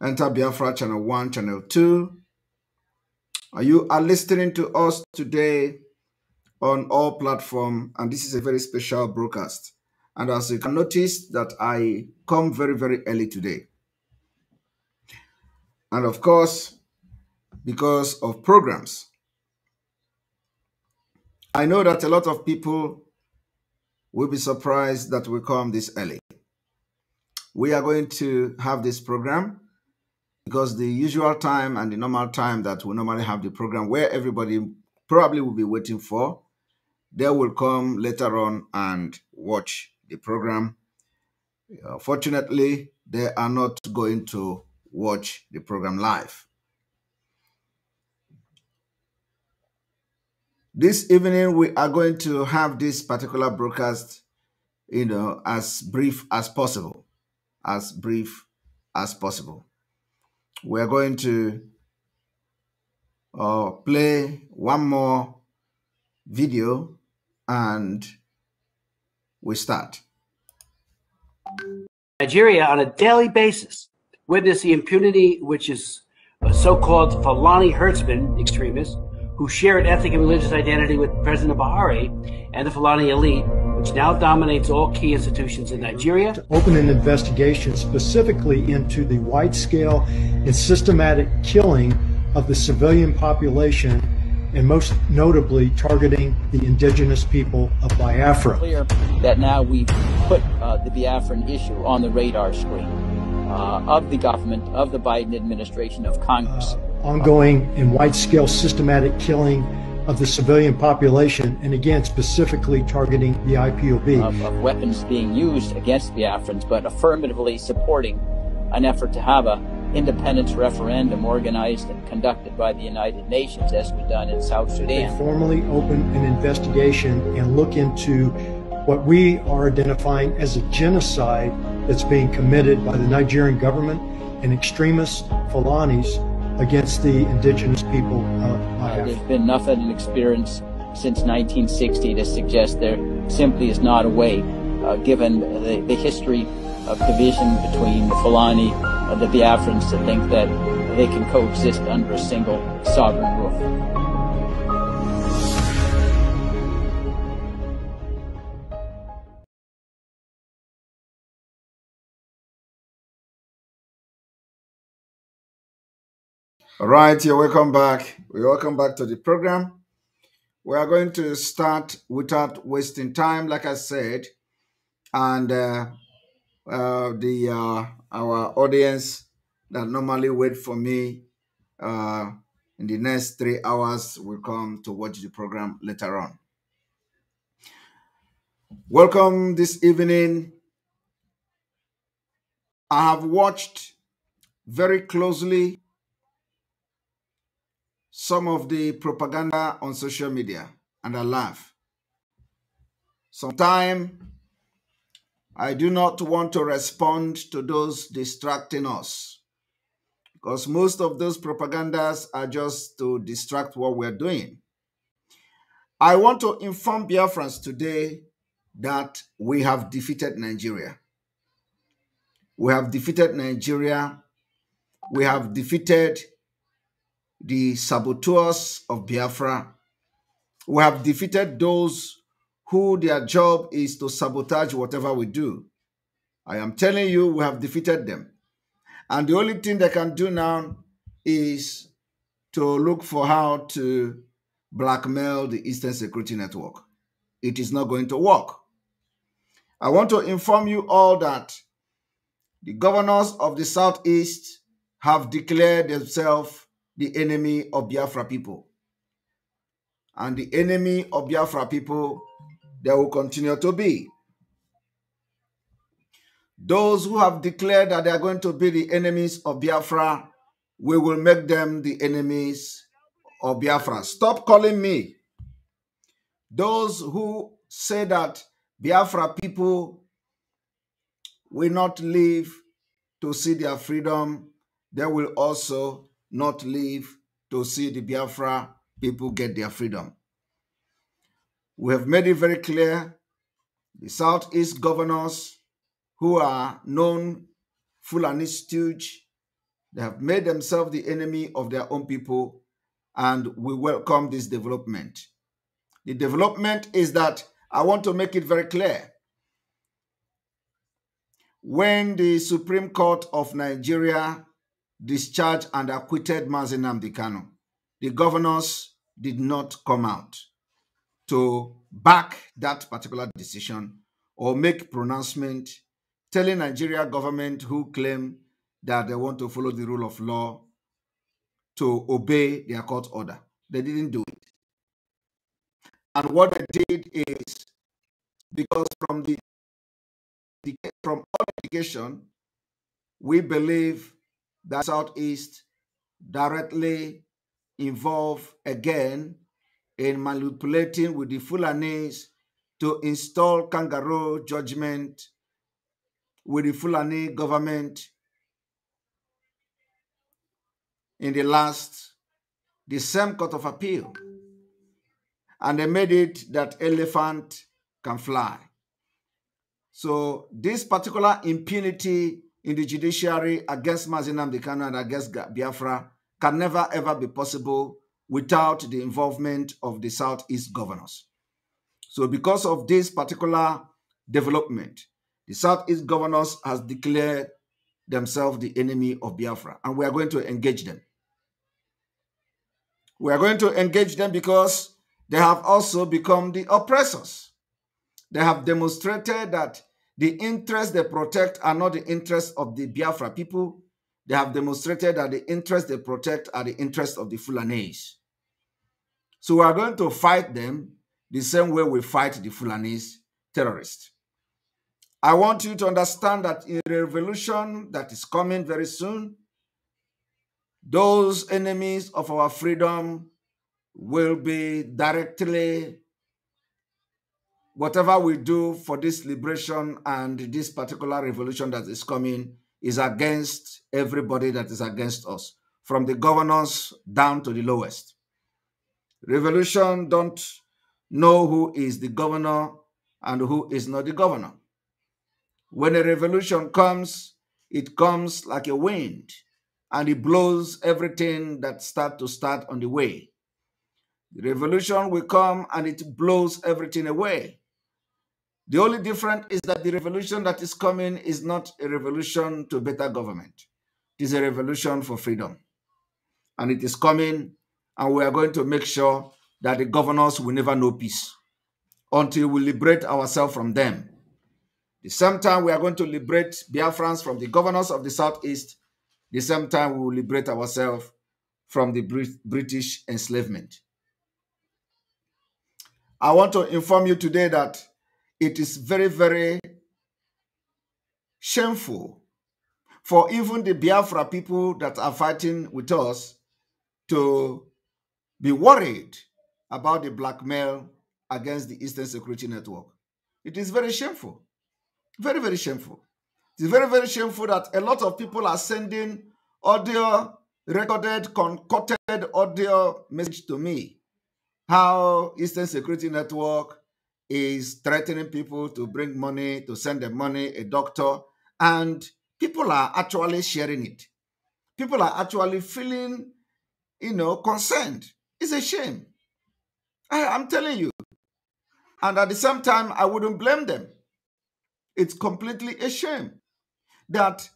Enter Biafra Channel 1, Channel 2. You are listening to us today on all platforms, and this is a very special broadcast. And as you can notice that I come very, very early today. And of course, because of programs. I know that a lot of people will be surprised that we come this early. We are going to have this program because the usual time and the normal time that we normally have the program where everybody probably will be waiting for, they will come later on and watch the program. Uh, fortunately, they are not going to watch the program live. This evening, we are going to have this particular broadcast, you know, as brief as possible, as brief as possible we're going to uh, play one more video and we start. Nigeria on a daily basis witness the impunity which is uh, so-called Fulani herdsmen extremists who share an ethnic and religious identity with President Buhari and the Fulani elite which now dominates all key institutions in Nigeria. To open an investigation specifically into the wide scale and systematic killing of the civilian population, and most notably targeting the indigenous people of Biafra. Clear that now we've put uh, the Biafran issue on the radar screen. Uh, of the government, of the Biden administration, of Congress. Uh, ongoing and wide scale systematic killing of the civilian population, and again, specifically targeting the IPOB. Of, um, of weapons being used against Biafrans, but affirmatively supporting an effort to have a independence referendum organized and conducted by the United Nations, as we've done in South Sudan. They formally open an investigation and look into what we are identifying as a genocide that's being committed by the Nigerian government and extremist Fulanis, against the indigenous people uh, There's been nothing in experience since 1960 to suggest there simply is not a way, uh, given the, the, history of division between the Fulani and the Biafrans, to think that they can coexist under a single sovereign roof. All right, you're welcome back. We welcome back to the program. We are going to start without wasting time, like I said, and uh, uh, the uh, our audience that normally wait for me uh, in the next three hours will come to watch the program later on. Welcome this evening. I have watched very closely some of the propaganda on social media and I laugh. Sometimes I do not want to respond to those distracting us because most of those propagandas are just to distract what we're doing. I want to inform Biafrans today that we have defeated Nigeria. We have defeated Nigeria. We have defeated the saboteurs of Biafra. We have defeated those who their job is to sabotage whatever we do. I am telling you, we have defeated them. And the only thing they can do now is to look for how to blackmail the Eastern Security Network. It is not going to work. I want to inform you all that the governors of the Southeast have declared themselves the enemy of Biafra people. And the enemy of Biafra people, they will continue to be. Those who have declared that they are going to be the enemies of Biafra, we will make them the enemies of Biafra. Stop calling me. Those who say that Biafra people will not live to see their freedom, they will also not live to see the Biafra people get their freedom. We have made it very clear the Southeast governors who are known Fulani stooge, they have made themselves the enemy of their own people, and we welcome this development. The development is that I want to make it very clear. When the Supreme Court of Nigeria discharged and acquitted Mazenam Dikano. The governors did not come out to back that particular decision or make pronouncement telling Nigeria government who claim that they want to follow the rule of law to obey their court order. They didn't do it. And what they did is because from the from all education, we believe that Southeast directly involved again in manipulating with the Fulanese to install kangaroo judgment with the Fulani government in the last, the same court of appeal. And they made it that elephant can fly. So this particular impunity in the judiciary against Mazinam Dekano and against Biafra can never ever be possible without the involvement of the Southeast governors. So because of this particular development, the Southeast governors has declared themselves the enemy of Biafra, and we are going to engage them. We are going to engage them because they have also become the oppressors. They have demonstrated that the interests they protect are not the interests of the Biafra people. They have demonstrated that the interests they protect are the interests of the Fulanese. So we are going to fight them the same way we fight the Fulanese terrorists. I want you to understand that in the revolution that is coming very soon, those enemies of our freedom will be directly whatever we do for this liberation and this particular revolution that is coming is against everybody that is against us, from the governors down to the lowest. Revolution don't know who is the governor and who is not the governor. When a revolution comes, it comes like a wind and it blows everything that start to start on the way. The revolution will come and it blows everything away. The only difference is that the revolution that is coming is not a revolution to better government. It is a revolution for freedom. And it is coming, and we are going to make sure that the governors will never know peace until we liberate ourselves from them. the same time, we are going to liberate Biafrans from the governors of the Southeast. the same time, we will liberate ourselves from the British enslavement. I want to inform you today that it is very, very shameful for even the Biafra people that are fighting with us to be worried about the blackmail against the Eastern Security Network. It is very shameful. Very, very shameful. It's very, very shameful that a lot of people are sending audio, recorded, concocted audio message to me. How Eastern Security Network is threatening people to bring money, to send them money, a doctor, and people are actually sharing it. People are actually feeling, you know, concerned. It's a shame. I, I'm telling you. And at the same time, I wouldn't blame them. It's completely a shame that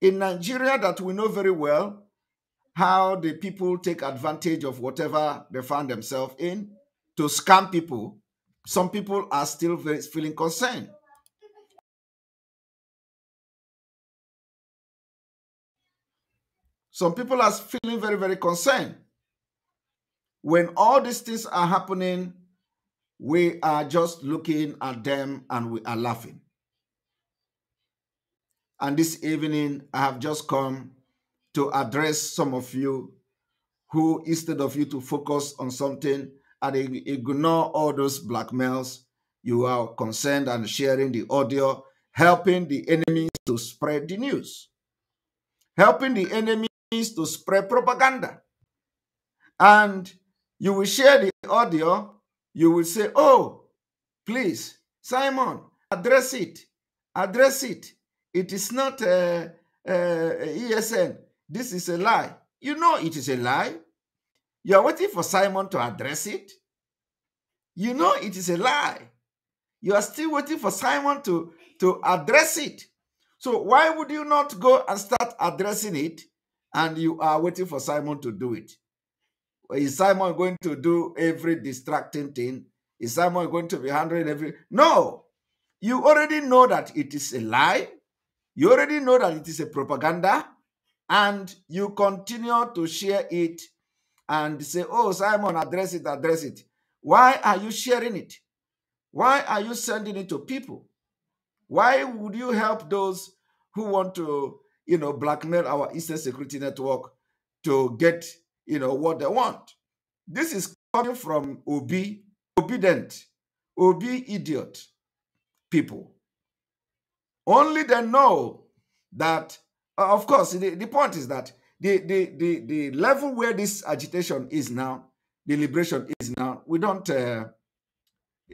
in Nigeria that we know very well how the people take advantage of whatever they find themselves in to scam people some people are still feeling concerned. Some people are feeling very, very concerned. When all these things are happening, we are just looking at them and we are laughing. And this evening, I have just come to address some of you who, instead of you to focus on something, and ignore all those blackmails. You are concerned and sharing the audio, helping the enemies to spread the news, helping the enemies to spread propaganda. And you will share the audio. You will say, Oh, please, Simon, address it. Address it. It is not a uh, uh, ESN. This is a lie. You know it is a lie. You are waiting for Simon to address it. You know it is a lie. You are still waiting for Simon to, to address it. So why would you not go and start addressing it and you are waiting for Simon to do it? Is Simon going to do every distracting thing? Is Simon going to be handling every? No. You already know that it is a lie. You already know that it is a propaganda. And you continue to share it and say, Oh, Simon, address it, address it. Why are you sharing it? Why are you sending it to people? Why would you help those who want to, you know, blackmail our Eastern Security Network to get, you know, what they want? This is coming from obe, obedient, obe idiot people. Only they know that, uh, of course, the, the point is that the, the, the, the level where this agitation is now, the liberation is now, we don't, uh,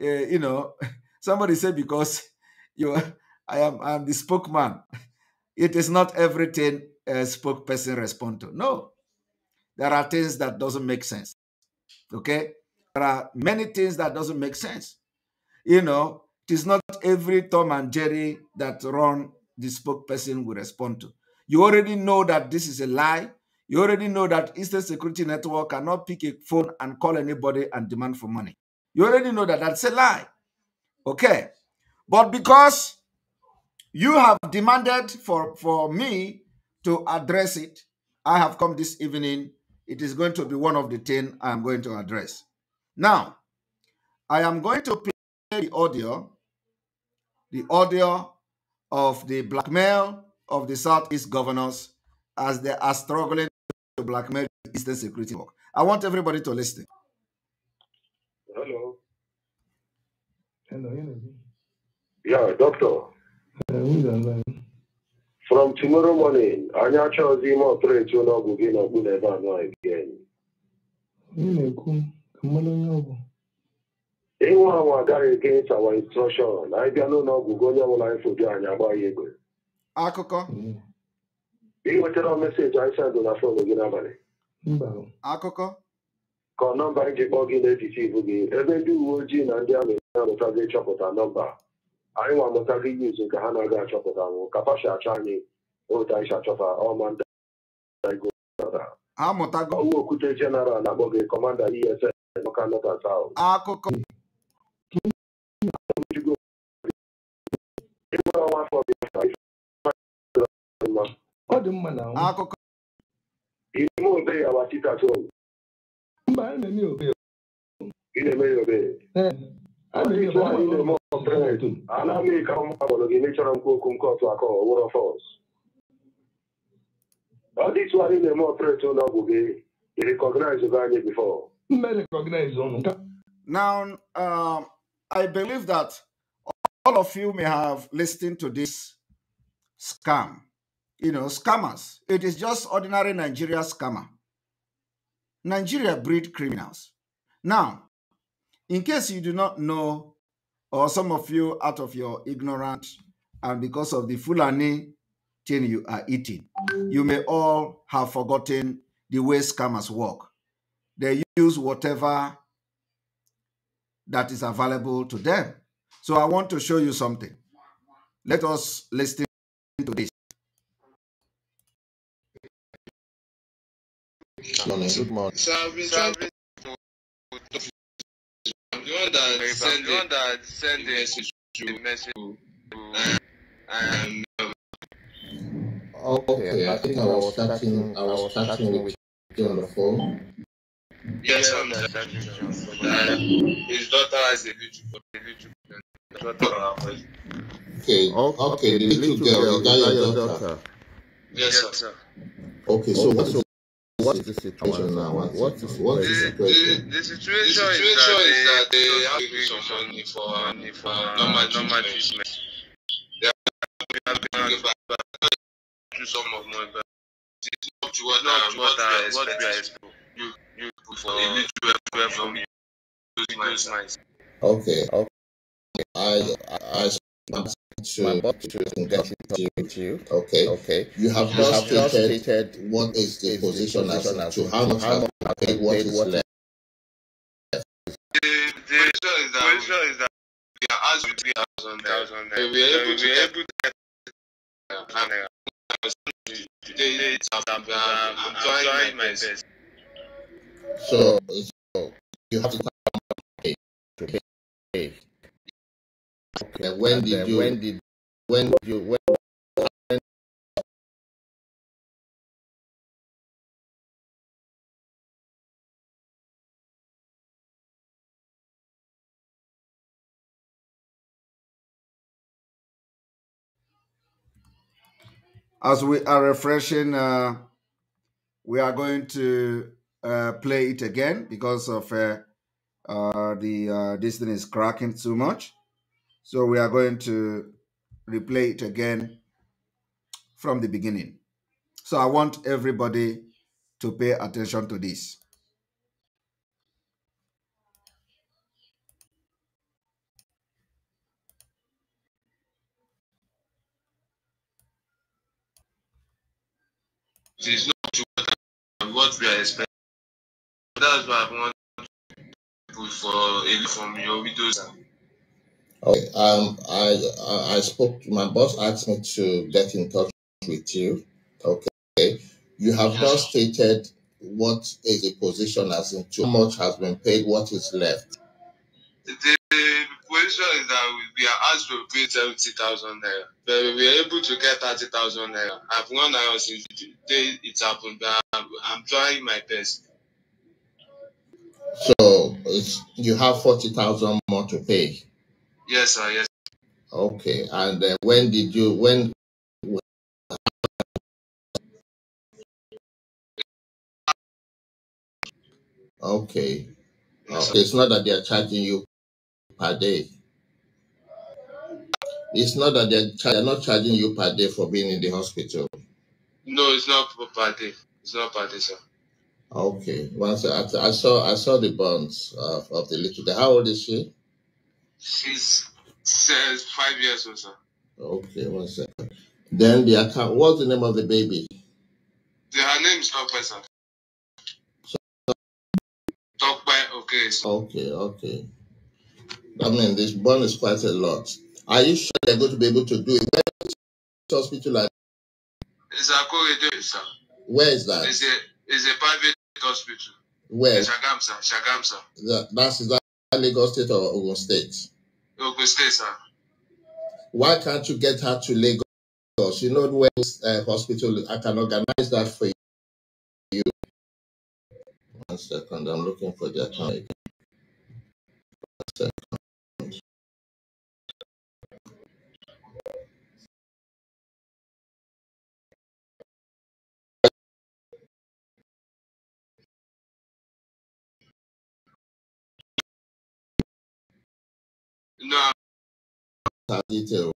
uh, you know, somebody said because you, I am, I am the spokesman. It is not everything a spokesperson respond to. No, there are things that doesn't make sense. Okay, there are many things that doesn't make sense. You know, it is not every Tom and Jerry that run the spokesperson will respond to. You already know that this is a lie. You already know that Eastern Security Network cannot pick a phone and call anybody and demand for money. You already know that that's a lie. Okay. But because you have demanded for, for me to address it, I have come this evening. It is going to be one of the 10 I am going to address. Now, I am going to play the audio, the audio of the blackmail of the Southeast governors as they are struggling to blackmail the Eastern Security Network. I want everybody to listen. Hello. Hello, energy. Yeah, doctor. Hello. From tomorrow morning, anyị achọghịzi ime ọpụreti ụlọọgwụ gị na ọgwụ n'ebe anọ again. Onye na-ekwu ka mmanụ onye ọgwụ. Ịnwa against our instruction I don't know onye ọbụla anyị foju anya agbaghị egwe. akụkọ ị wetara meseji anyị sendụ na gị n'abalị akụkọ ka ọ nọmba anyị ji kpọọ gị n'etiti ibu gị ebe ndị uwe ojii na ndị amị na-amụta gị chọpụta nọmba anyị nwa amụta gị yuzu nke ha na-aga achọpụta nwụ kapashi achọ anyị otu anyị achọta ọma ndị okwute jenaral na-akpọ gị kọmanda ESN Local North and akụkọ ọ dị mma na akụkọ ime obere mba a na-eme obere ị na-eme ya obere ana m ike ụmụ agbọrọ gị mechọrọ m okwu nke otu aka ọwụrọ fọs ọ dị tụ anyị Now, um, I believe that all of you may have listened to this scam. you know, scammers. It is just ordinary Nigeria scammer. Nigeria breed criminals. Now, in case you do not know, or some of you out of your ignorance and because of the Fulani thing you are eating, you may all have forgotten the way scammers work. They use whatever that is available to them. So I want to show you something. Let us listen to this. morning. Good morning. So I've been trying to the one that sent the, one that sent the message to message to um, Okay, I think I was starting I was starting with you on the phone. Yes, I'm starting His daughter has a little a Okay. Okay. Okay, the little girl, is that your daughter? Yes, sir. Okay, so what's what is the situation now? What, what is the, situation? The, the situation, the situation is, that they, they have given some money for money for normal normal treatment. They have been given back to some of money, but it's not to what not what, what, what, what we are expecting. You you for individual from you Okay, okay. I I. I to, to with you. Okay. Okay. You have you have stated, stated what is the is position, the position as, as to how much how much paid, what is left. The, the is that, question is that we are We are able to able to get So, so you have to come to pay. Okay. when did you? When did? When you? When? when As we are refreshing, uh, we are going to uh, play it again because of uh, uh, the uh, this thing is cracking too much. So we are going to replay it again from the beginning. So I want everybody to pay attention to this. It is not what we are expecting. That's why I want for from your Okay, um, I, I spoke to my boss, asked me to get in touch with you. Okay, you have yeah. just stated what is the position as in too much has been paid, what is left. The, the position is that we are asked to pay 70,000 naira, but we are able to get 30,000 naira. I've gone out since the day it happened, but I'm, I'm trying my best. So you have 40,000 more to pay. Yes, sir. Yes. Okay. And uh, when did you when? Okay. okay. It's not that they are charging you per day. It's not that they're, they not charging you per day for being in the hospital. No, it's not per day. It's not per day, sir. Okay. Once I, I saw I saw the bonds of, of the little. How old is she? She's says five years or sir. Okay, one second. Then the account. What's the name of the baby? The, her name is Tokwe, sir. So, Tokwe, okay. Okay, okay. I mean, this bond is quite a lot. Are you sure they're going to be able to do it? Where is hospital? At? It's Akorede, sir. Where is that? It's a, it's a private hospital. Where? Shagam, sir. Shagam, sir. That, that's that. Lagos State or Ogun State? Ogun State, sir. Why can't you get her to Lagos? You know where this uh, hospital I can organize that for you. One second, I'm looking for that. account One second. No. Details.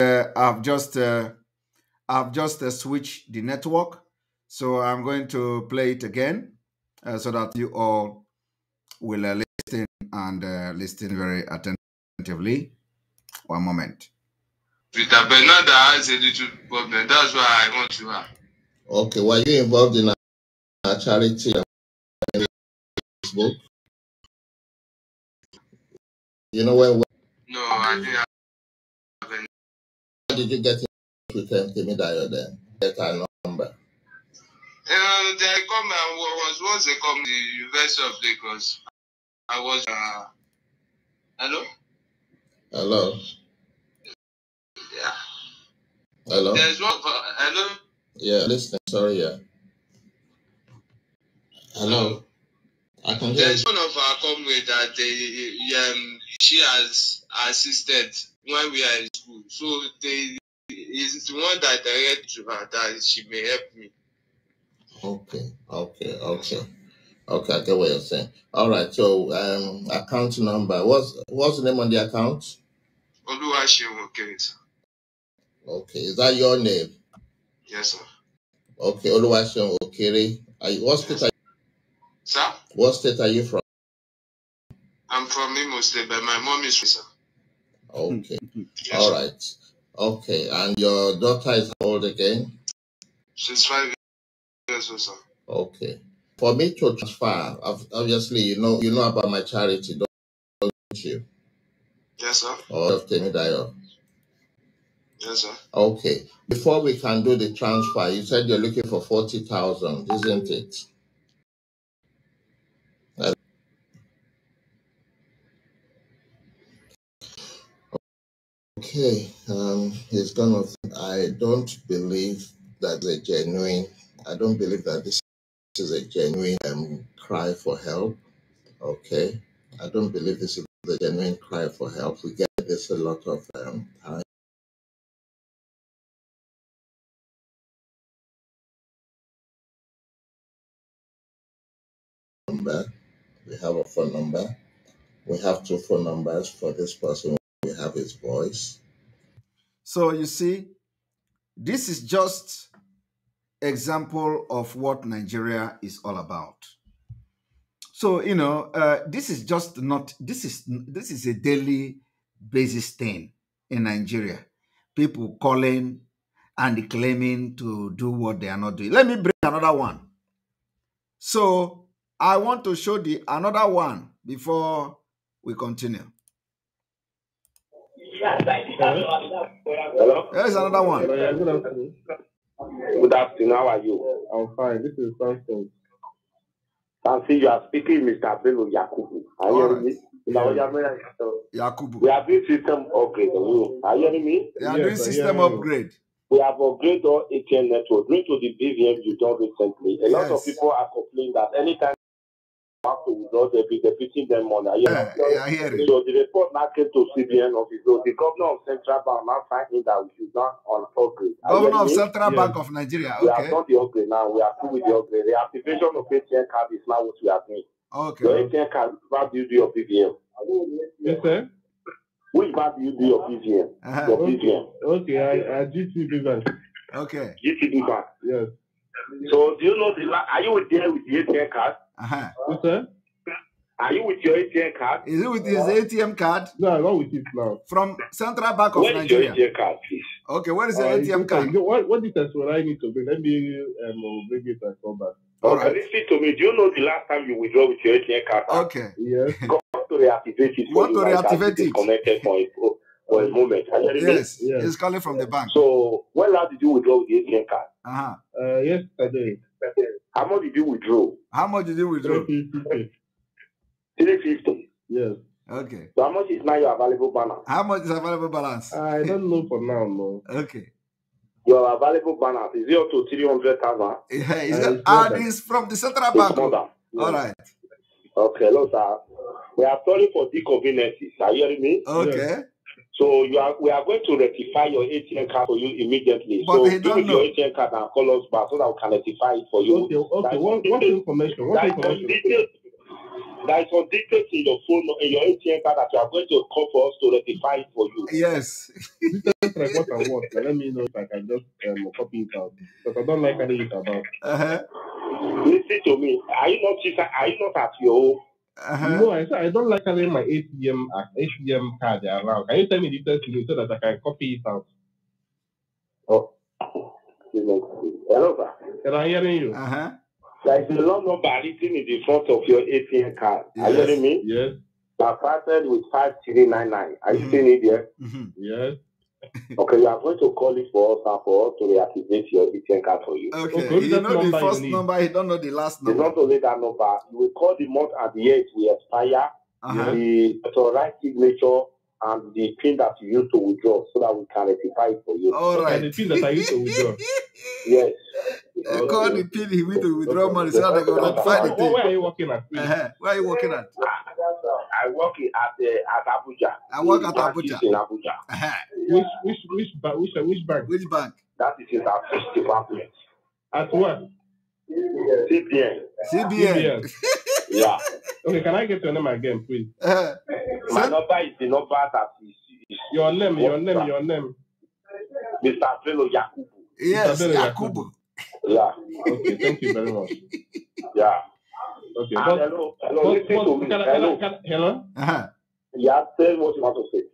Uh, I've just uh, I've just uh, switched the network. So I'm going to play it again uh, so that you all will uh, listen and uh, listen very attentively. One moment. Peter Bernard has a little problem. That's why I want to ask. Okay, were you involved in a charity Facebook? You know where? No, I didn't. Have any. How did you get? to tempt me that Get her number. Uh, they come and was once they come the University of Lagos. I was. Uh, hello. Hello. Yeah. Hello. There's one. For, hello. Yeah, listen. Sorry. Yeah. Hello. I can hear There's you. one of our comrades that they, um, she has assisted when we are in school. So they is the one that direct to her that she may help me. Okay, okay, okay. Okay, I get what you're saying. All right, so um, account number. What's what's the name on the account? Oluwaseun Okere, Okay, is that your name? Yes, sir. Okay, Oluwaseun Okere. Are what state yes. are you? Sir. What state are you from? I'm from Imo State, but my mom is from. Okay. Hmm, hmm, hmm. All right. Okay, and your daughter is old again? She's five years old, sir. Okay. For me to transfer, obviously, you know, you know about my charity, don't you? Yes, sir. Or of Temidayo. Yes, sir. Okay. Before we can do the transfer, you said you're looking for forty thousand, isn't it? Okay, um, it's kind of. I don't believe that a genuine. I don't believe that this is a genuine um, cry for help. Okay, I don't believe this is the genuine cry for help. We get this a lot of um, time. Number. We have a phone number. We have two phone numbers for this person have his voice. So you see, this is just example of what Nigeria is all about. So you know, uh, this is just not this is this is a daily basis thing in Nigeria. People calling and claiming to do what they are not doing. Let me bring another one. So I want to show the another one before we continue. Hello? Here's another one. Good afternoon. How are you? I'm fine. This is Samson. Samson, you are speaking, Mr. Bello Yakubu. Are you hearing me? Yakubu. We are doing system upgrade. Are you hearing me? We are doing system upgrade. We have upgraded our ATM network. Due to the BVM you done recently, a lot yes. of people are complaining that anytime have to withdraw, be debiting them money. I yeah, eh, yeah, I hear so it. the report now came to CBN office. So the governor of Central Bank now finding that we should not on upgrade. Governor of Central yeah. Bank of Nigeria, okay. We are not the upgrade now. We are through with the upgrade. The activation of ATM card is now what we are doing. Okay. Your ATM card is not duty of BVM. Yes, sir. Which bank do you do your BVM? Uh-huh. Your okay. Okay, I, I GTB Bank. Okay. GTB Bank. Yes. So do you know the? Are you there with the ATM card? Uh-huh. Okay. Are you with your ATM card? Is it with his ATM card? No, not with it now. From Central Bank of Where Nigeria. Where is your uh, ATM card, please? Okay, What is the uh, ATM card? You what, what details will I need to bring? Let me um, bring it and come back. All okay, right. Listen to me. Do you know the last time you withdraw with your ATM card? Okay. Yes. Go to reactivate it. Want to reactivate it? Connected for it. For a moment. Yes. yes, he's calling from the bank. So, when last did you withdraw with the ATM card? Uh-huh. Uh, yesterday. yesterday. How much did you withdraw? How much did you withdraw? Three fifty. Yes. Okay. So how much is now your available balance? How much is available balance? I don't know for now, no. Okay. Your available balance is zero to three hundred thousand. Yeah, it's uh, and it's from the central bank. Yeah. All right. Okay, hello, sir. We are sorry for the inconveniences. Are you hearing me? Okay. Yes. So you are, we are going to rectify your ATM card for you immediately. But so they don't know. your ATM card and call us back so that we can rectify it for you. Okay, okay. what, what information? What information? there is some details in your phone, in your ATM card that you are going to call for us to rectify it for you. Yes. like what I want. Let me know if I can just um, copy it out because I don't like anything about. Uh-huh. Listen to me. Are you not? Are you not at your home? Uh-huh. No, I, I don't like having my ATM uh, ATM card around. Can you tell me the details so that I can copy it out? Oh, hello, sir. Can I hear you? Uh huh. There is a long number written in the front of your ATM card. Yes. Are you hearing me? Yes. I started with five three nine nine. Are you mm-hmm. seeing it there? Mm-hmm. Yes okay, you are going to call it for us and for us to reactivate your ATM card for you. Okay, okay. you know the first number, you don't know the last number. You not only that number. You will call the month and the year we expire. Uh-huh. The authorized signature and the pin that you used to withdraw so that we can rectify it for you. All right. And the pin that I used to withdraw. yes. You call the pin he went to withdraw money so that they can rectify the thing. Where are you working at? Uh-huh. Where are you working at? I work at uh, at Abuja. I work at Abuja. In Abuja. Uh-huh. Which which which bank? Which, which bank? Which bank? That is in our first department. At what? CBN. CBN. yeah. Okay, can I get your name again, please? Uh, My number is the number that is. is your name, your name, your name. Mr. Felo Yakubu. Yes, Mr. Yakubu. Yeah. Okay, thank you very much. Yeah. Okay. But, hello, hello, but, listen but, to me. Can hello. Can hello? Uh-huh. Yeah, tell what you want to say.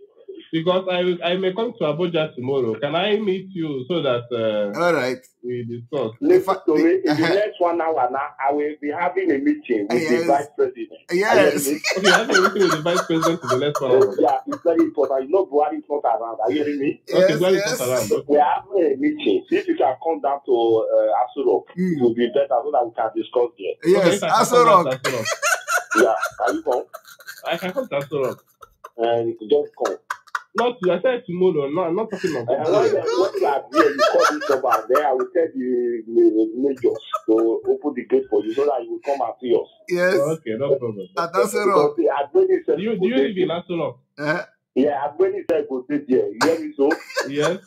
because I I may come to Abuja tomorrow. Can I meet you so that uh, all right we discuss? The, so the, in the uh next one hour now, I will be having a meeting with yes. the vice president. Yes, okay, I have a meeting with the vice president in the next one hour. Yeah, it's very important. You know, Buhari is not around. Are you hearing me? Yes, okay, Buhari yes. around. We are having a meeting. If you can come down to uh, Asurok, mm. it will be better so that we can discuss there. Yes, okay, Asurok. yeah, can you come? I can come to Asurok. And just come. Not I said tomorrow. No, I'm not talking about that. Oh what you have here, you call this number there. I will tell the, the major to open the gate for you so that you will come after us. Yes. Oh, okay, no problem. At Asero. Do you do you live in Asero? Eh? Yeah, Agbeni said go stay there. You hear me so? Yes.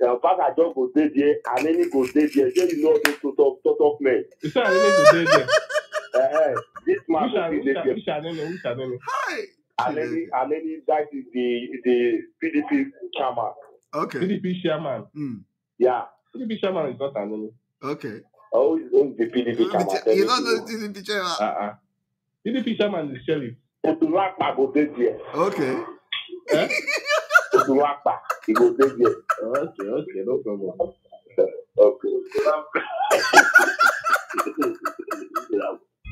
Yeah, Pastor John go stay there, and any go stay there. Then you know those sort of sort of men. You say Anene go stay there. Eh, this man go stay there. Hi. Aleni Aleni that is the the PDP chairman. Okay. PDP chairman. Mm. Yeah, PDP chairman is not Aleni. Okay. Oh, the PDP chairman. You don't the PDP chairman. Uh uh. PDP chairman is sheriff. Otulapa go dey there. Okay. Eh? Otulapa he go dey there. Okay, okay, no problem. Okay.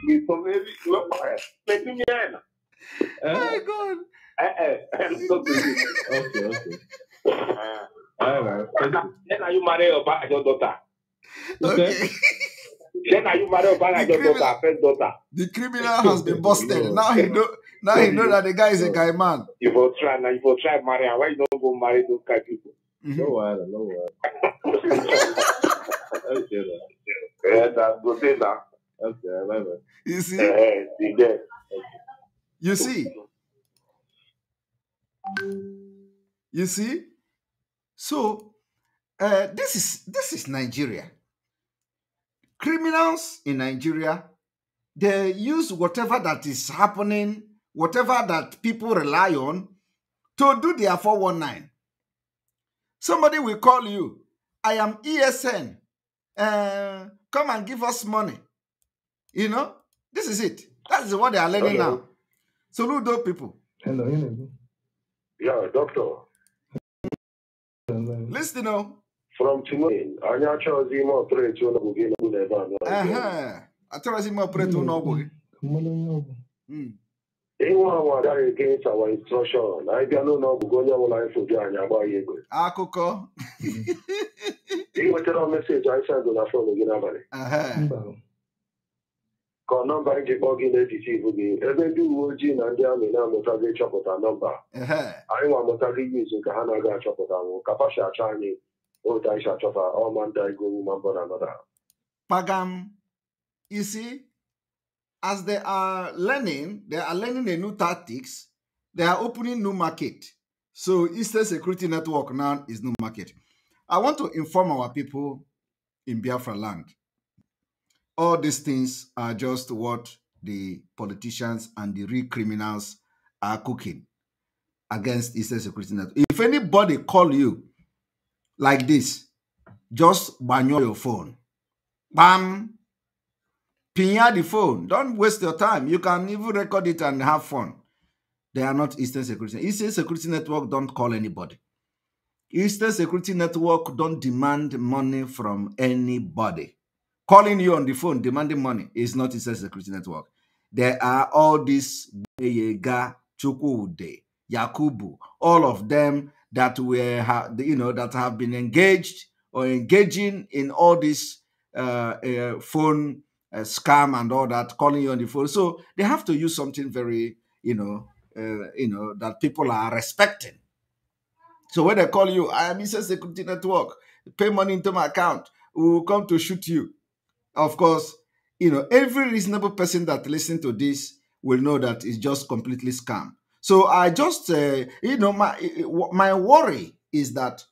Mi sọ fẹ́ mi lọ́pàá ẹ̀ pẹ̀lú uh, oh my God. Uh, uh, I'm so busy. Okay, okay. Uh-huh. All right. Then are you married or back your daughter? Okay. Then are you married or back your daughter, first daughter? The criminal has been busted. now he know. Now he know that the guy is a guy man. You will try now. You will try marry. Why you don't go marry those kind of people? Mm-hmm. No hmm No worry, no worry. okay, yeah, that's good. Eh, okay, bye bye. You see, uh, see there. Okay. You see? You see? So uh, this is this is Nigeria. Criminals in Nigeria, they use whatever that is happening, whatever that people rely on, to do their 419. Somebody will call you. I am ESN. Uh, come and give us money. You know, this is it. That is what they are learning okay. now. Soludo people. Hello, Yeah, doctor. Listen now. From today ime ọpụreti ụlọọgwụ gị n'ọgwụ na ebe a. Achọghịzi ime ọpụreti ụlọọgwụ gị. na onye anyị anyị Akụkọ. Ị nwetara meseji anyị sendụ na fon gị n'abalị. ka ọ nọmba njikọ gị na-etiti ibu gị ebe ndị uwe ojii na ndị amị na-amụtaghị ịchọpụta nọmba anyị nwa amụtaghị iz ka ha na-aga achọpụta nwụ ka pasha achọ anyị otu anyị achọpụta ọma ndị anyị gowu ma mbọ na anọda pagam isi as they are learning they are learning a new tactics they are opening new market so eastern security network now is new market i want to inform our people in biafra land all these things are just what the politicians and the real criminals are cooking against Eastern Security Network. If anybody call you like this, just ban your phone. Bam! Pinya the phone. Don't waste your time. You can even record it and have fun. They are not Eastern Security. Eastern Security Network don't call anybody. Eastern Security Network don't demand money from anybody calling you on the phone demanding money is not inside security network. There are all these Yega, Chukwude, Yakubu, all of them that were you know that have been engaged or engaging in all this uh, uh, phone uh, scam and all that, calling you on the phone. So they have to use something very you know uh, you know that people are respecting. So when they call you, I am inside security network. Pay money into my account. We will come to shoot you. Of course, you know, every reasonable person that listens to this will know that it's just completely scam. So I just, uh, you know, my eh, eh, my worry is that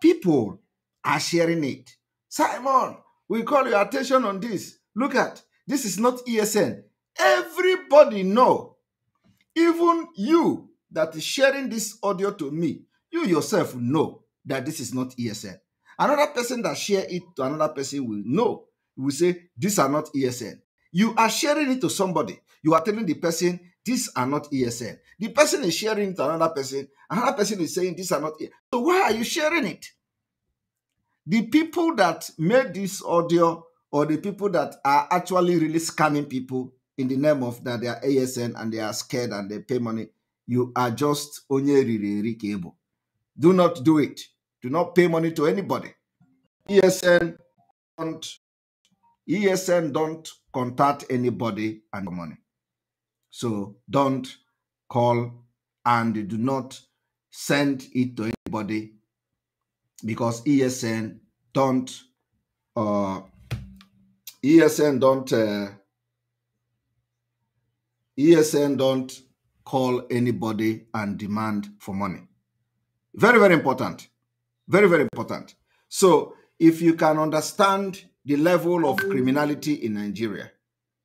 people are sharing it. Simon, we call your attention on this. Look at this is not ESN. Everybody know, even you that is sharing this audio to me, you yourself know that this is not ESN. Another person that share it to another person will know you will say, These are not ESN. You are sharing it to somebody. You are telling the person, These are not ESN. The person is sharing it to another person. Another person is saying, These are not ESN. So why are you sharing it? The people that made this audio or the people that are actually really scamming people in the name of that they are ASN and they are scared and they pay money, you are just really cable. Do not do it. Do not pay money to anybody. ESN and ESN don't contact anybody and money. So don't call and do not send it to anybody because ESN don't uh, ESN don't uh, ESN don't call anybody and demand for money. Very very important. Very very important. So if you can understand the level of criminality in Nigeria.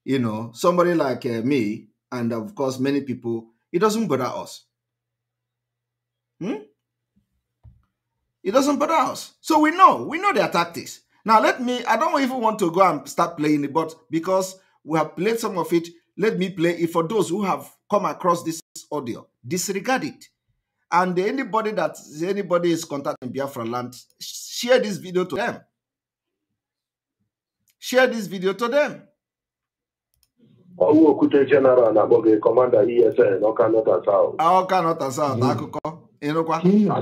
You know, somebody like uh, me, and of course, many people, it doesn't bother us. Hmm? It doesn't bother us. So we know, we know their tactics. Now, let me, I don't even want to go and start playing it, but because we have played some of it, let me play it for those who have come across this audio. Disregard it. And anybody that anybody is contacting Biafra land, share this video to them. share this video to them. Ọwọ́ Okwute General na-akpọ gị Kọmanda ESN Ọka Nọta South. Ah, Ọka Nọta South hmm. akụkọ ịnụkwa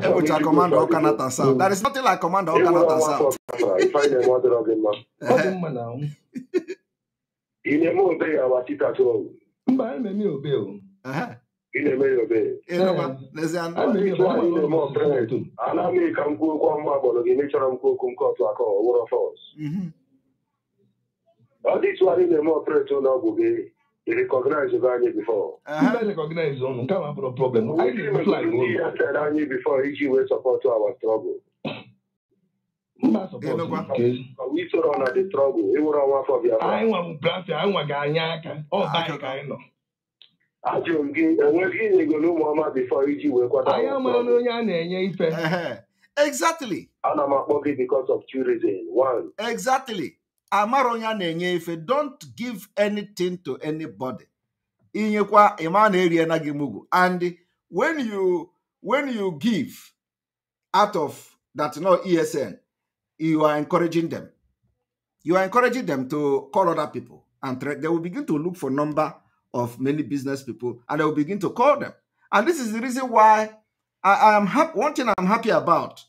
ebụcha Kọmanda Ọka Nọta South. There is nothing like Kọmanda Ọka Nọta South. Ị na-eme obe ya wa tita tụọ. Mba, ememe obe o. na-eme ya obe. na-eme ọpere ana m ka m kwuo okwu ọma gbọrọ gị mechọrọ m kwuo okwu nke ọtụ aka ọ wụrụ fọs. ọ dịtụ anyị na-eme ọpretị na ọgwụ gị be anyị before recognize ụnụ nke problem anyị before iji wee sọpọtụ our struggle isoro na the struggle ịnwere e ọnwa afọ bịara anya aka ọ ka nọ ajụrụ m gị enweghị ego n'ụmụọma bifọ iji wee kwata anyị amara onye a na-enye ife Exactly. Ana m akpọ gị because of tourism. One. Exactly. amaronya na-enye ife don't give anything to anybody inyekwa ịma na eriena gị mugu and when you when you give out of that no esn you are encouraging them you are encouraging them to call other people and they will begin to look for number of many business people and they will begin to call them and this is the reason why i, I am happy one thing i'm happy about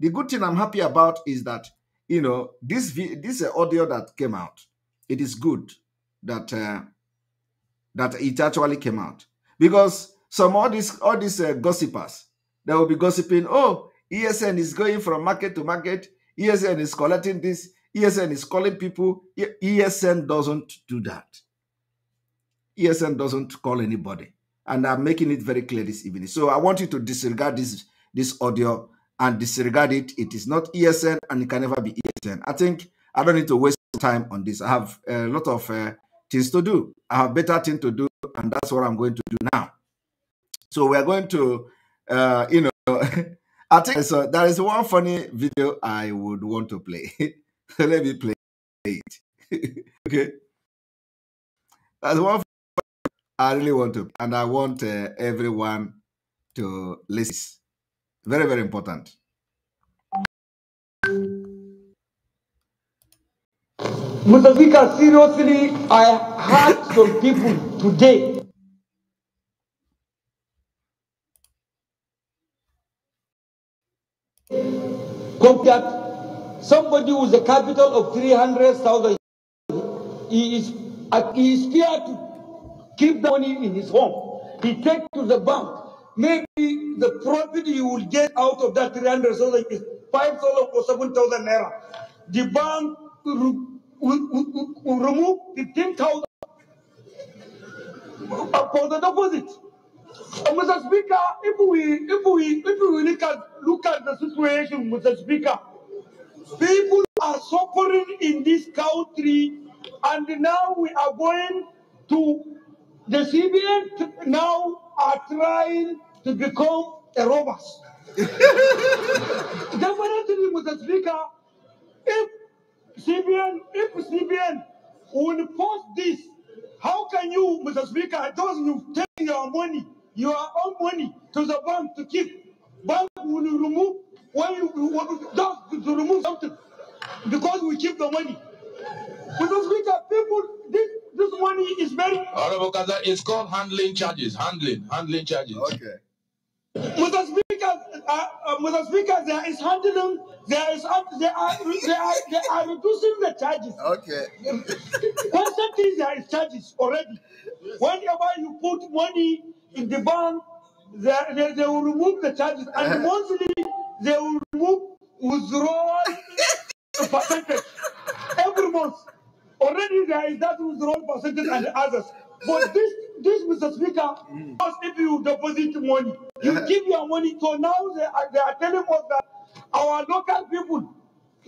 the good thing i'm happy about is that you know, this this uh, audio that came out, it is good that uh, that it actually came out because some all these all these uh, gossipers they will be gossiping. Oh, ESN is going from market to market. ESN is collecting this. ESN is calling people. ESN doesn't do that. ESN doesn't call anybody, and I'm making it very clear this evening. So I want you to disregard this this audio and disregard it. It is not ESN and it can never be ESN. I think I don't need to waste time on this. I have a lot of uh, things to do. I have better things to do, and that's what I'm going to do now. So we are going to, uh, you know, I think so. There is one funny video I would want to play. Let me play it. okay. That's one I really want to, and I want uh, everyone to listen. Very, very important. Mr. Speaker, seriously, I heard some people today. Compared somebody with a capital of 300,000, he is, he is feared to keep the money in his home. He takes to the bank Maybe the profit you will get out of that 300,000 is 5,000 or 7,000 naira. The bank will, remove the ten thousand for the deposit. Uh, Mr. Speaker, if we if we if we look at look at the situation, Mr. Speaker, people are suffering in this country, and now we are going to the CBN. Now are trying to become a robbers. Definitely, Mr. Speaker, if CBN, if CBN will post this, how can you, Mr. Speaker, those who take your money, your own money to the bank to keep, bank will remove when you want to remove something because we keep the money. Mr. Speaker, people, this this money is very. Honorable Kaza, it's called handling charges, handling, handling charges. Okay. Mr. Speaker, uh, uh, Mr. Speaker, there is handling, there is, uh, they are, they are, they are reducing the charges. Okay. Constantly there is charges already. Yes. Whenever you put money in the bank, they, they, they will remove the charges, and uh -huh. monthly they will remove withdrawal percentage every month. Already there is that withdrawal percentage and others. But this, this, Mr. Speaker, mm. if you deposit money, you give your money. So now they are, they are telling us that our local people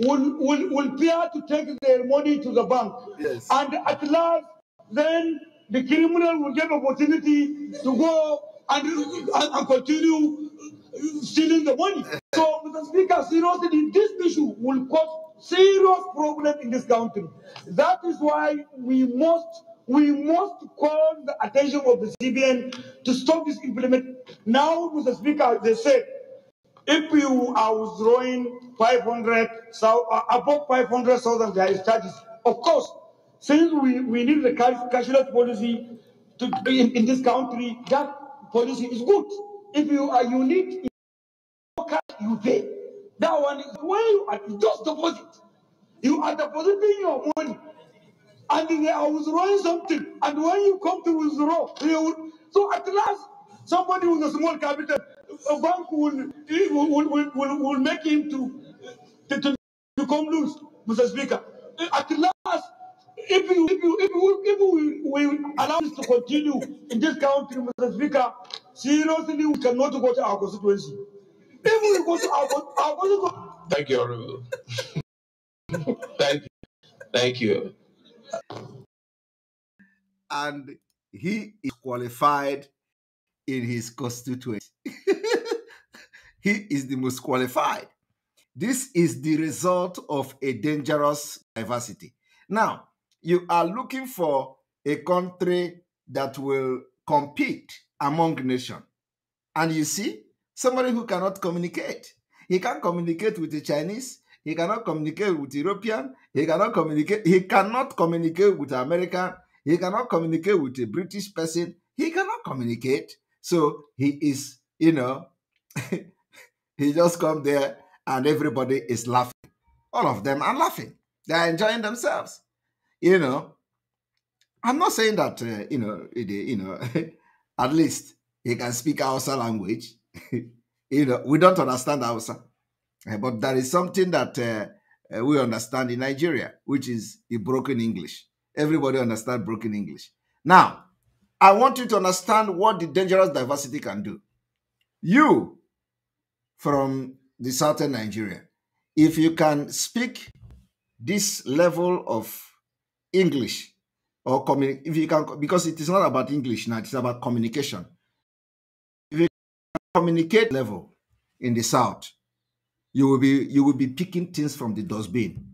will, will, will fear to take their money to the bank. Yes. And at last, then the criminal will get opportunity to go and, and, and continue stealing the money. So, Mr. Speaker, seriously, this issue will cause serious problem in this country. That is why we must we must call the attention of the CBN to stop this implement. Now, Mr. Speaker, they said, if you are withdrawing 500, so, uh, above 500,000 there is charges. Of course, since we, we need the cash, cashless policy to be in, in, this country, that policy is good. If you are unique, you pay. That one is when you are just deposit. You are depositing your money and they are withdrawing something. And when you come to withdraw, will, so at last, somebody with a small capital, a bank will, will, will, will, will make him to, to, to become loose, Mr. Speaker. At last, if you if you if, you, if we, we allow this to continue in this country, Mr. Speaker, seriously we cannot go to our constituency. If we go to our, our constituency. Thank you, Honorable. Thank you. Thank you and he is qualified in his constituency. he is the most qualified. This is the result of a dangerous diversity. Now, you are looking for a country that will compete among nations. And you see, somebody who cannot communicate. He can't communicate with the Chinese. He cannot communicate with the European. He cannot communicate. He cannot communicate with American. He cannot communicate with a British person. He cannot communicate. So he is, you know, he just come there and everybody is laughing. All of them are laughing. They are enjoying themselves. You know, I'm not saying that, uh, you know, you know, at least he can speak Hausa language. you know, we don't understand Hausa. Eh, but there is something that uh, uh, we understand in Nigeria, which is the broken English. Everybody understands broken English. Now, I want you to understand what the dangerous diversity can do. You, from the southern Nigeria, if you can speak this level of English or communi- if you can, because it is not about English now, it's about communication. If you communicate level in the south, you will be you will be picking things from the dustbin.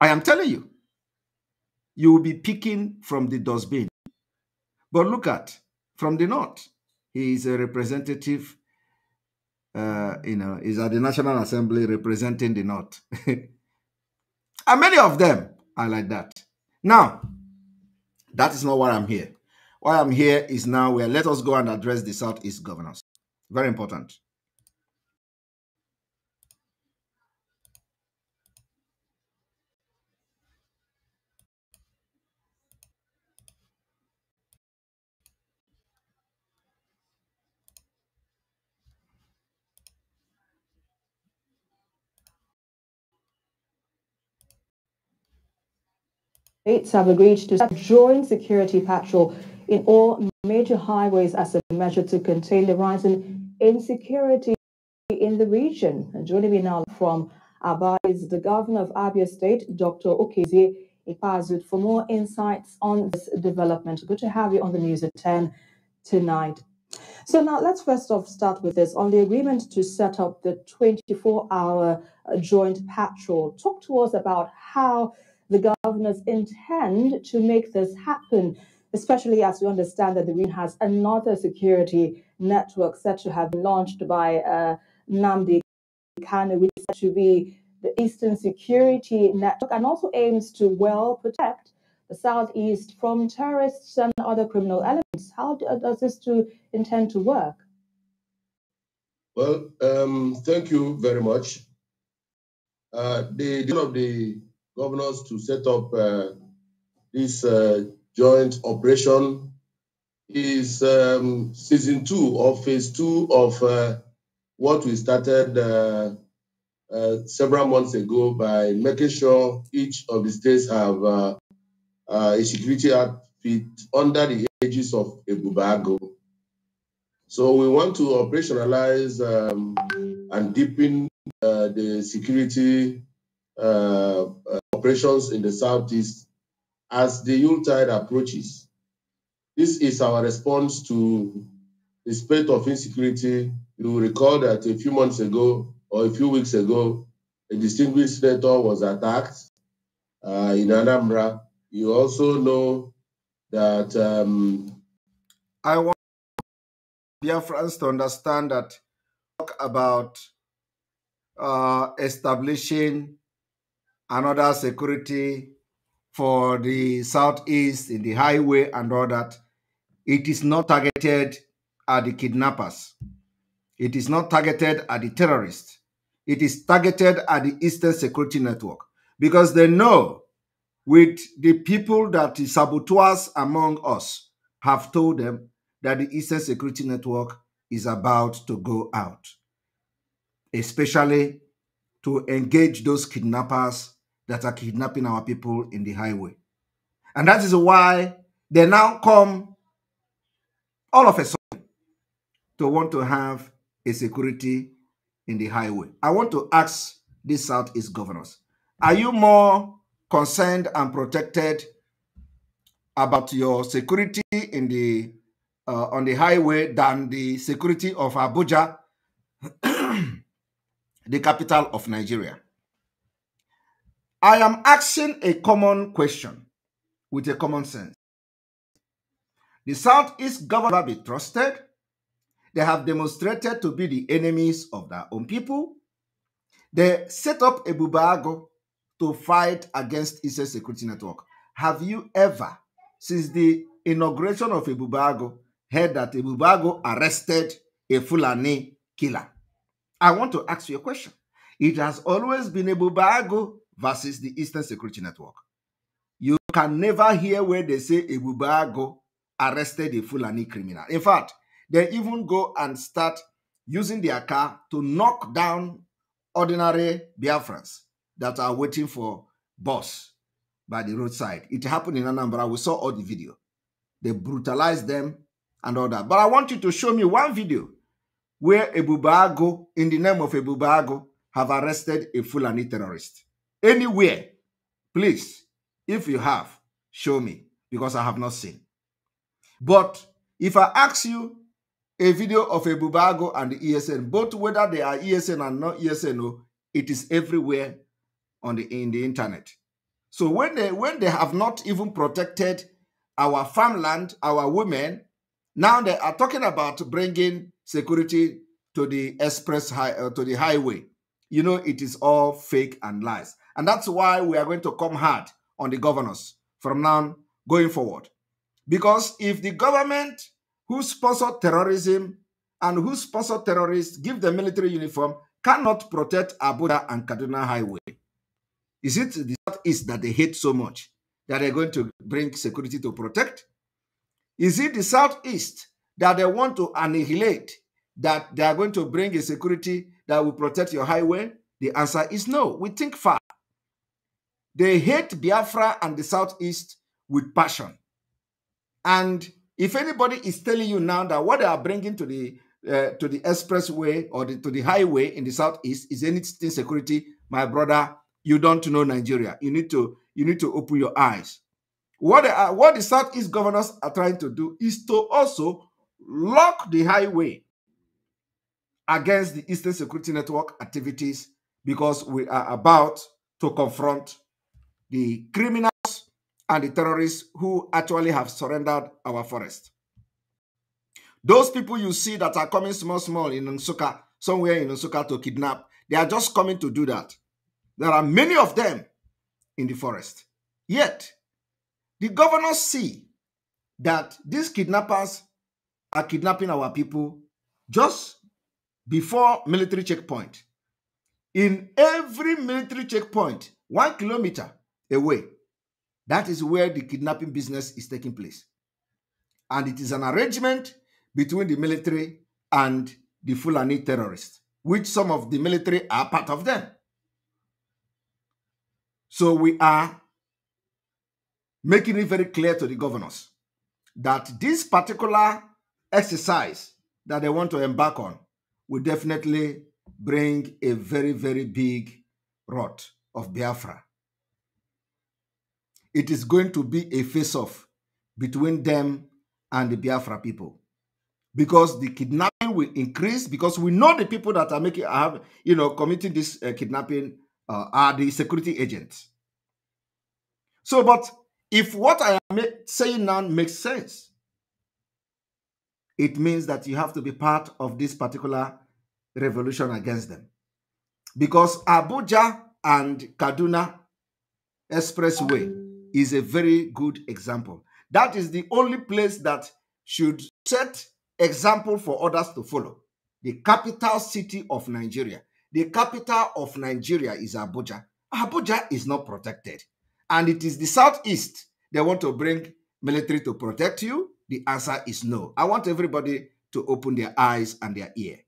I am telling you, you will be picking from the dustbin. But look at from the north, he is a representative. Uh, you know, is at the National Assembly representing the North. and many of them are like that. Now, that is not why I'm here. Why I'm here is now where let us go and address the Southeast governors. Very important. states have agreed to start joint security patrol in all major highways as a measure to contain the rising insecurity in the region. And joining me now from Aba is the governor of Abia State, Dr. Okezie Ipazut, for more insights on this development. Good to have you on the news at 10 tonight. So now let's first off start with this on the agreement to set up the 24-hour joint patrol. Talk to us about how the governors intend to make this happen, especially as we understand that the region has another security network set to have been launched by uh, Namdi Kanu, which is to be the Eastern Security Network, and also aims to well protect the Southeast from terrorists and other criminal elements. How does this to intend to work? Well, um, thank you very much. Uh, the, deal of the governors to set up uh, this uh, joint operation is um, season two or phase two of uh, what we started uh, uh, several months ago by making sure each of the states have uh, a security outfit under the aegis of Ebubago. So we want to operationalize um, and deepen the security uh, operations in the Southeast as the Yuletide approaches. This is our response to the spread of insecurity. You will recall that a few months ago or a few weeks ago, a distinguished senator was attacked uh, in Anambra. You also know that. Um, I want dear friends to understand that talk about uh, establishing another security for the southeast in the highway and all that. It is not targeted at the kidnappers. It is not targeted at the terrorists. It is targeted at the Eastern Security Network because they know with the people that the saboteurs among us have told them that the Eastern Security Network is about to go out, especially to engage those kidnappers that are kidnapping our people in the highway. And that is why they now come all of a sudden to want to have a security in the highway. I want to ask these Southeast governors, are you more concerned and protected about your security in the uh, on the highway than the security of Abuja, the capital of Nigeria? I am asking a common question with a common sense. The Southeast government be trusted. They have demonstrated to be the enemies of their own people. They set up a bubago to fight against Israel security network. Have you ever, since the inauguration of a Bubago, heard that a Bubago arrested a Fulani killer? I want to ask you a question. It has always been a Bubago versus the Eastern Security Network. You can never hear where they say Ebubago arrested a Fulani criminal. In fact, they even go and start using their car to knock down ordinary Biafrans that are waiting for bus by the roadside. It happened in Anambra. We saw all the video. They brutalized them and all that. But I want you to show me one video where Ebubago, in the name of Ebubago, have arrested a Fulani terrorist. anywhere, please, if you have, show me, because I have not seen. But if I ask you a video of a Bubago and the ESN, both whether they are ESN and not ESN, oh, it is everywhere on the in the internet. So when they when they have not even protected our farmland, our women, now they are talking about bringing security to the express high, uh, to the highway. You know, it is all fake and lies. And that's why we are going to come hard on the governors from now going forward. Because if the government who sponsor terrorism and who sponsor terrorists give the military uniform cannot protect Abuja and Kaduna Highway, is it the Southeast that they hate so much that they're going to bring security to protect? Is it the Southeast that they want to annihilate that they are going to bring a security that will protect your highway? The answer is no. We think fast. They hate Biafra and the Southeast with passion. And if anybody is telling you now that what they are bringing to the uh, to the expressway or the, to the highway in the southeast is anything security, my brother, you don't know Nigeria. You need to you need to open your eyes. What are, uh, what the southeast governors are trying to do is to also lock the highway against the Eastern Security Network activities because we are about to confront the criminals and the terrorists who actually have surrendered our forest. Those people you see that are coming small, small in Nsuka, somewhere in Nsuka to kidnap, they are just coming to do that. There are many of them in the forest. Yet, the governors see that these kidnappers are kidnapping our people just before military checkpoint. In every military checkpoint, one kilometer, away. That is where the kidnapping business is taking place. And it is an arrangement between the military and the Fulani terrorists, which some of the military are part of them. So we are making it very clear to the governors that this particular exercise that they want to embark on will definitely bring a very, very big rot of Biafra it is going to be a face off between them and the Biafra people. Because the kidnapping will increase, because we know the people that are making, have you know, committing this uh, kidnapping uh, are the security agents. So, but if what I am saying now makes sense, it means that you have to be part of this particular revolution against them. Because Abuja and Kaduna Expressway is a very good example. That is the only place that should set example for others to follow. The capital city of Nigeria. The capital of Nigeria is Abuja. Abuja is not protected. And it is the southeast they want to bring military to protect you. The answer is no. I want everybody to open their eyes and their ear.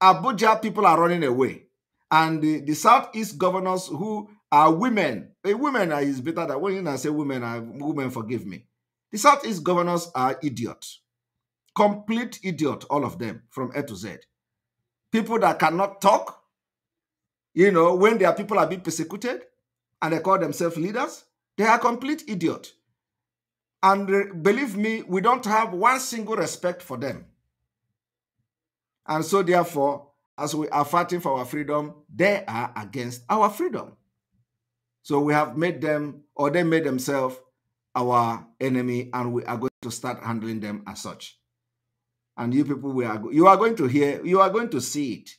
Abuja people are running away. And the, the southeast governors who are women a women are is better than when you say women are women, forgive me. The Southeast governors are idiots. Complete idiot, all of them, from A to Z. People that cannot talk, you know, when their people are being persecuted and they call themselves leaders, they are complete idiot. And believe me, we don't have one single respect for them. And so therefore, as we are fighting for our freedom, they are against our freedom. So we have made them, or they made themselves our enemy, and we are going to start handling them as such. And you people, we are you are going to hear, you are going to see it.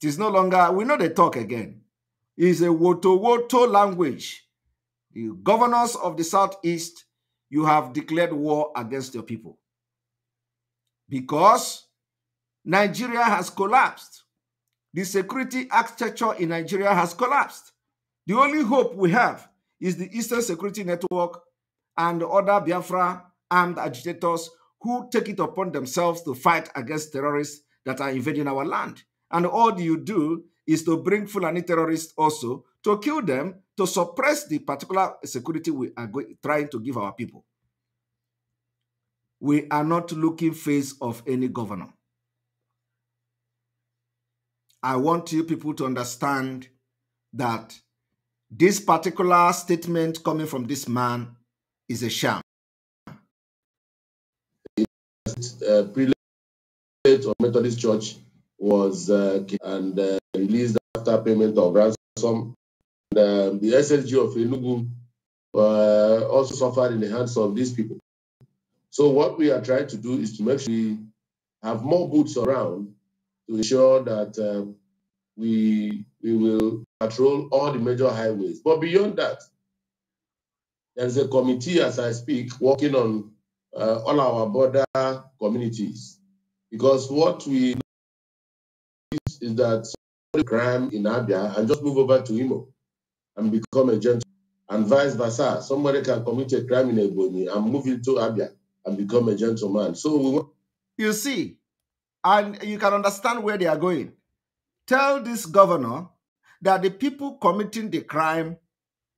It is no longer, we know they talk again. It is a woto woto language. The governors of the southeast, you have declared war against your people. Because Nigeria has collapsed. The security architecture in Nigeria has collapsed. The only hope we have is the Eastern Security Network and other Biafra armed agitators who take it upon themselves to fight against terrorists that are invading our land. And all you do is to bring Fulani terrorists also to kill them, to suppress the particular security we are trying to give our people. We are not looking face of any governor. I want you people to understand that this particular statement coming from this man is a sham. Uh, prelate of Methodist Church was uh, and uh, released after payment of ransom. And, um, the SSG of Enugu uh, also suffered in the hands of these people. So what we are trying to do is to make sure we have more boots around to ensure that um, we we will patrol all the major highways. But beyond that, there's a committee, as I speak, working on uh, all our border communities. Because what we is that crime in Abia and just move over to Imo and become a gentleman, and vice versa. Somebody can commit a crime in Ebony and move into Abia and become a gentleman. So you see, and you can understand where they are going. Tell this governor that the people committing the crime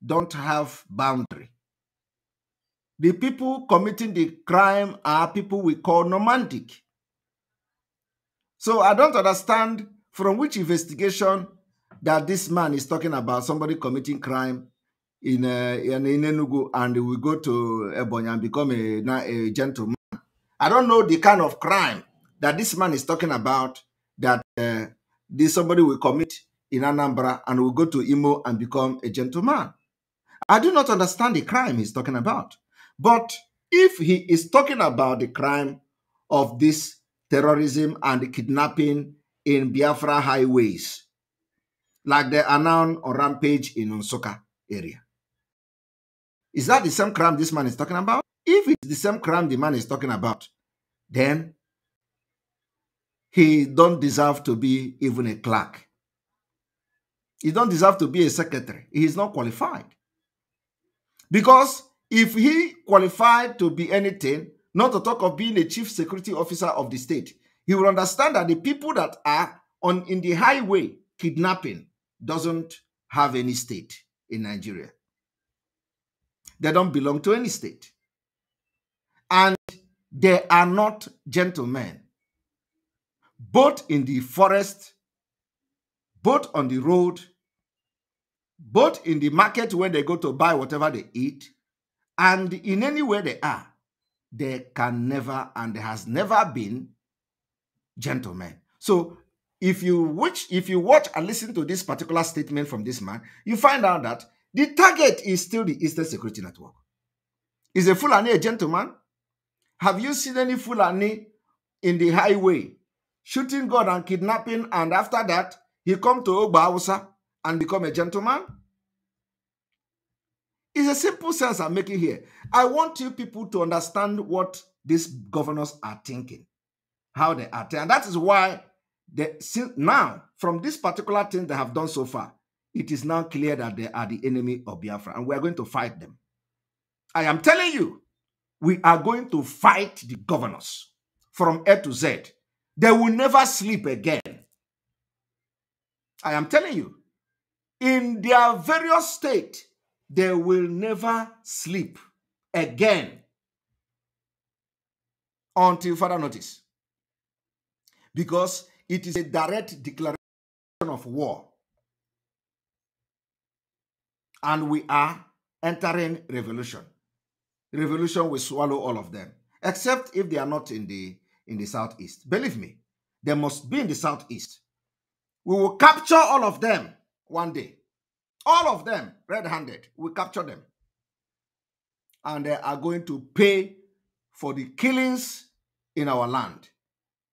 don't have boundary. The people committing the crime are people we call nomadic. So I don't understand from which investigation that this man is talking about somebody committing crime in uh, in, in Enugu and we go to Ebony and become a, a gentleman. I don't know the kind of crime that this man is talking about that uh, this somebody will commit in Anambra and will go to Imo and become a gentleman. I do not understand the crime he's talking about. But if he is talking about the crime of this terrorism and kidnapping in Biafra highways, like the Anan or rampage in Unsoka area, is that the same crime this man is talking about? If it's the same crime the man is talking about, then he don't deserve to be even a clerk he don't deserve to be a secretary. He is not qualified. Because if he qualified to be anything, not to talk of being a chief security officer of the state, he will understand that the people that are on in the highway kidnapping doesn't have any state in Nigeria. They don't belong to any state. And they are not gentlemen, both in the forest, both on the road, both in the market where they go to buy whatever they eat and in anywhere they are, they can never and has never been gentlemen. So if you watch, if you watch and listen to this particular statement from this man, you find out that the target is still the Eastern Security Network. Is a Fulani a gentleman? Have you seen any Fulani in the highway shooting God and kidnapping? And after that, he come to Ogba Hausa and become a gentleman? It's a simple sense I'm making here. I want you people to understand what these governors are thinking, how they are And that is why they, since now, from this particular thing they have done so far, it is now clear that they are the enemy of Biafra and we are going to fight them. I am telling you, we are going to fight the governors from A to Z. They will never sleep again. I am telling you, in their various state, they will never sleep again until further notice. Because it is a direct declaration of war. And we are entering revolution. Revolution will swallow all of them, except if they are not in the in the southeast. Believe me, they must be in the southeast. We will capture all of them one day. All of them red handed. We capture them. And they are going to pay for the killings in our land.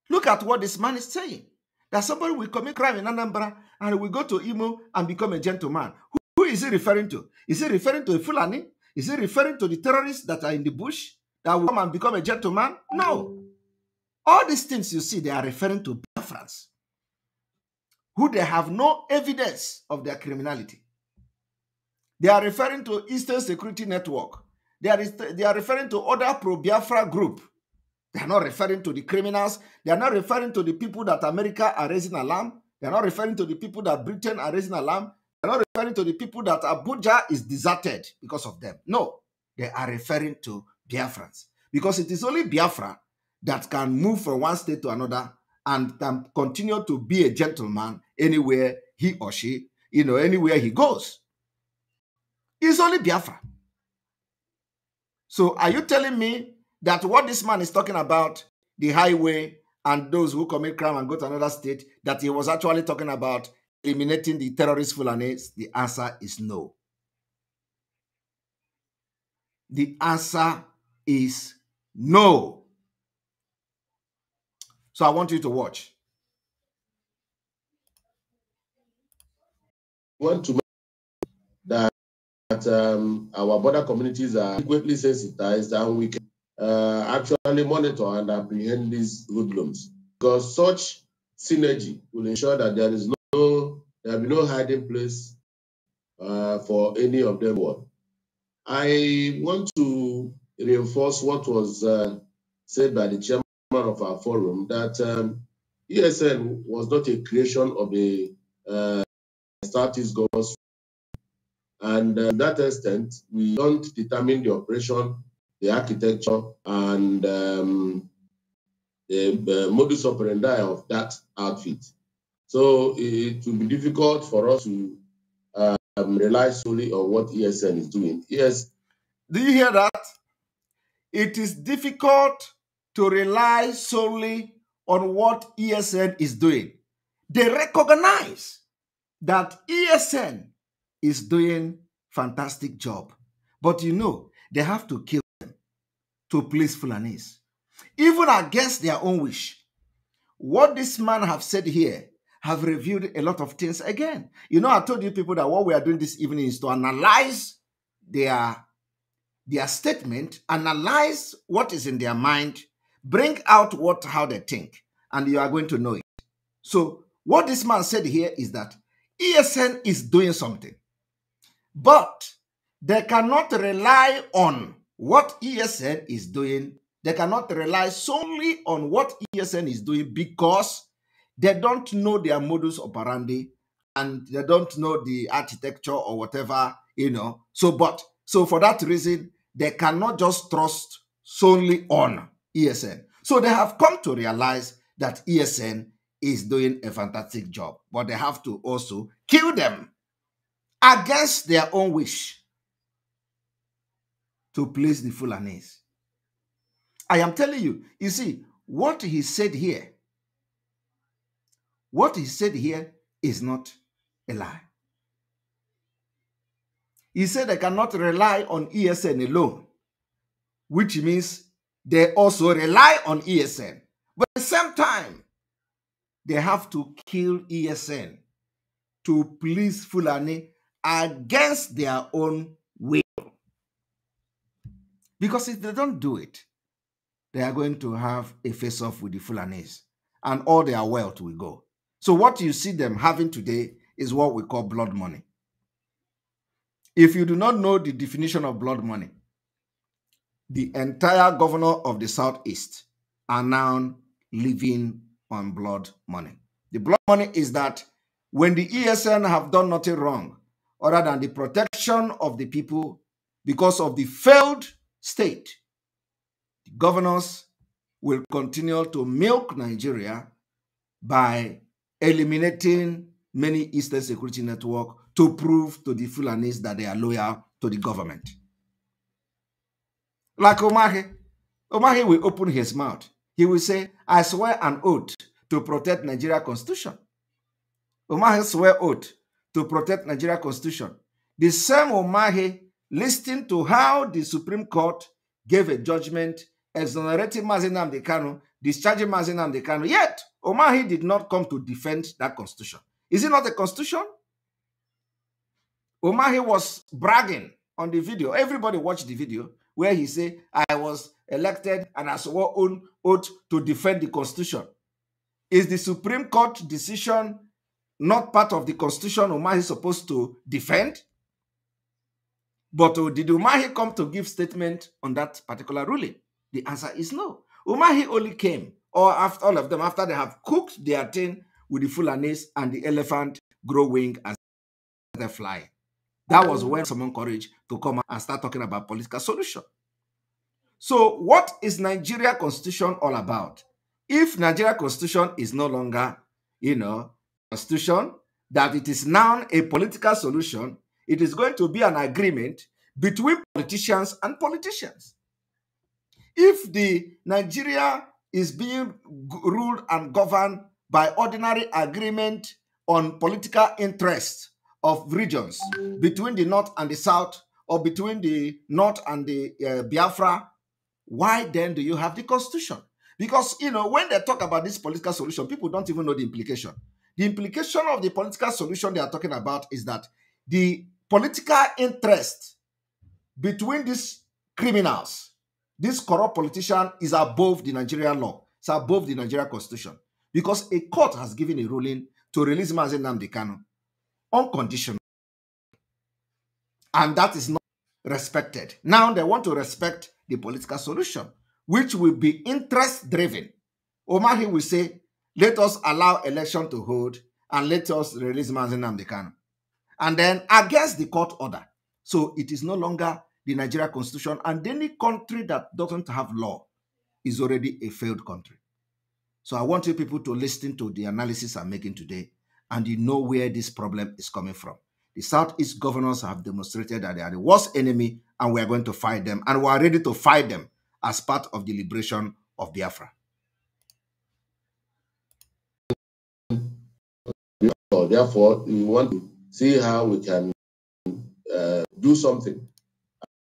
Look at what this man is saying. That somebody will commit crime in Anambra and will go to Imo and become a gentleman. Who, who is he referring to? Is he referring to a Fulani? Is he referring to the terrorists that are in the bush that will come and become a gentleman? No. All these things you see, they are referring to preference. who they have no evidence of their criminality. They are referring to Eastern Security Network. They are, they are referring to other pro-Biafra group. They are not referring to the criminals. They are not referring to the people that America are raising alarm. They are not referring to the people that Britain are raising alarm. They are not referring to the people that Abuja is deserted because of them. No, they are referring to Biafrans. Because it is only Biafra that can move from one state to another and can continue to be a gentleman anywhere he or she, you know, anywhere he goes. It's only Biafra. So are you telling me that what this man is talking about, the highway and those who commit crime and go to another state, that he was actually talking about eliminating the terrorist Fulanis? The answer is no. The answer is no. So I want you to watch. want to make that, that um, our border communities are adequately sensitized and we can uh, actually monitor and apprehend these hoodlums. Because such synergy will ensure that there is no there will be no hiding place uh, for any of them. I want to reinforce what was uh, said by the chairman of our forum that um, ESN was not a creation of a uh, established governor's and uh, that extent, we don't determine the operation, the architecture, and um, the uh, modus operandi of that outfit. So it will be difficult for us to um, rely solely on what ESN is doing. Yes. Do you hear that? It is difficult to rely solely on what ESN is doing. They recognize that ESN is doing fantastic job. But you know, they have to kill them to please Fulanese. Even against their own wish. What this man have said here have revealed a lot of things again. You know, I told you people that what we are doing this evening is to analyze their, their statement, analyze what is in their mind, bring out what how they think, and you are going to know it. So what this man said here is that ESN is doing something, but they cannot rely on what ESN is doing. They cannot rely solely on what ESN is doing because they don't know their modus operandi and they don't know the architecture or whatever, you know. So, but so for that reason, they cannot just trust solely on ESN. So they have come to realize that ESN is doing a fantastic job, but they have to also kill them against their own wish to please the Fulanese. I am telling you, you see, what he said here, what he said here is not a lie. He said they cannot rely on ESN alone, which means they also rely on ESN. But at the same time, they have to kill ESN to please Fulani against their own will. Because if they don't do it, they are going to have a face off with the Fulanis, and all their wealth will go. So, what you see them having today is what we call blood money. If you do not know the definition of blood money, the entire governor of the Southeast are now living on blood money. The blood money is that when the ESN have done nothing wrong other than the protection of the people because of the failed state, the governors will continue to milk Nigeria by eliminating many Eastern Security Network to prove to the Fulanese that they are loyal to the government. Like Omahe, Omahe will open his mouth he will say, I swear an oath to protect Nigeria constitution. Umahi swear oath to protect Nigeria constitution. The same Umahi listening to how the Supreme Court gave a judgment exonerating Mazinam Dekano, discharging Mazinam Dekano. Yet, Omahi did not come to defend that constitution. Is it not a constitution? Omahi was bragging on the video. Everybody watched the video where he said, I was elected and I swore on oath to defend the Constitution. Is the Supreme Court decision not part of the Constitution Umahi is supposed to defend? But uh, did Umahi come to give statement on that particular ruling? The answer is no. Umahi only came, or after all of them, after they have cooked their thing with the Fulanese and the elephant grow wing as they fly. That was when someone courage to come and start talking about political solution. So what is Nigeria constitution all about? If Nigeria constitution is no longer, you know, constitution, that it is now a political solution, it is going to be an agreement between politicians and politicians. If the Nigeria is being ruled and governed by ordinary agreement on political interests of regions between the north and the south or between the north and the uh, Biafra Why then do you have the constitution? Because, you know, when they talk about this political solution, people don't even know the implication. The implication of the political solution they are talking about is that the political interest between these criminals, this corrupt politician, is above the Nigerian law. It's above the Nigerian constitution. Because a court has given a ruling to release Mazen Namdi Kanu unconditional. And that is not respected. Now they want to respect the political solution, which will be interest driven. Omahi will say, let us allow election to hold and let us release Manzin Namdekano. And then against the court order. So it is no longer the Nigeria constitution and any country that doesn't have law is already a failed country. So I want you people to listen to the analysis I'm making today and you know where this problem is coming from. The Southeast governors have demonstrated that they are the worst enemy and we are going to fight them. And we are ready to fight them as part of the liberation of Biafra. Therefore, we want to see how we can uh, do something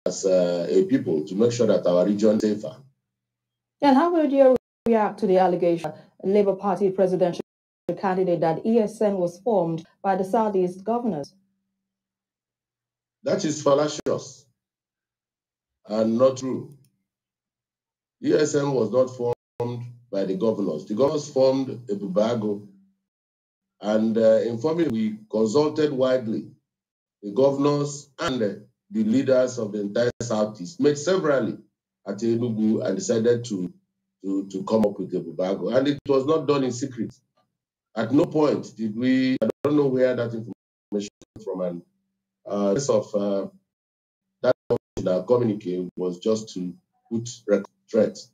as uh, a people to make sure that our region is safer. And how would you react to the allegation, Labour Party presidential candidate, that ESN was formed by the Southeast governors? That is fallacious and not true. ESN was not formed by the governors. The governors formed a Bubago, and uh, informally we consulted widely the governors and uh, the leaders of the entire Southeast, met severally at Enugu and decided to, to, to come up with a Bubago. And it was not done in secret. At no point did we, I don't know where that information from, and uh, of uh, that that was just to put record threats.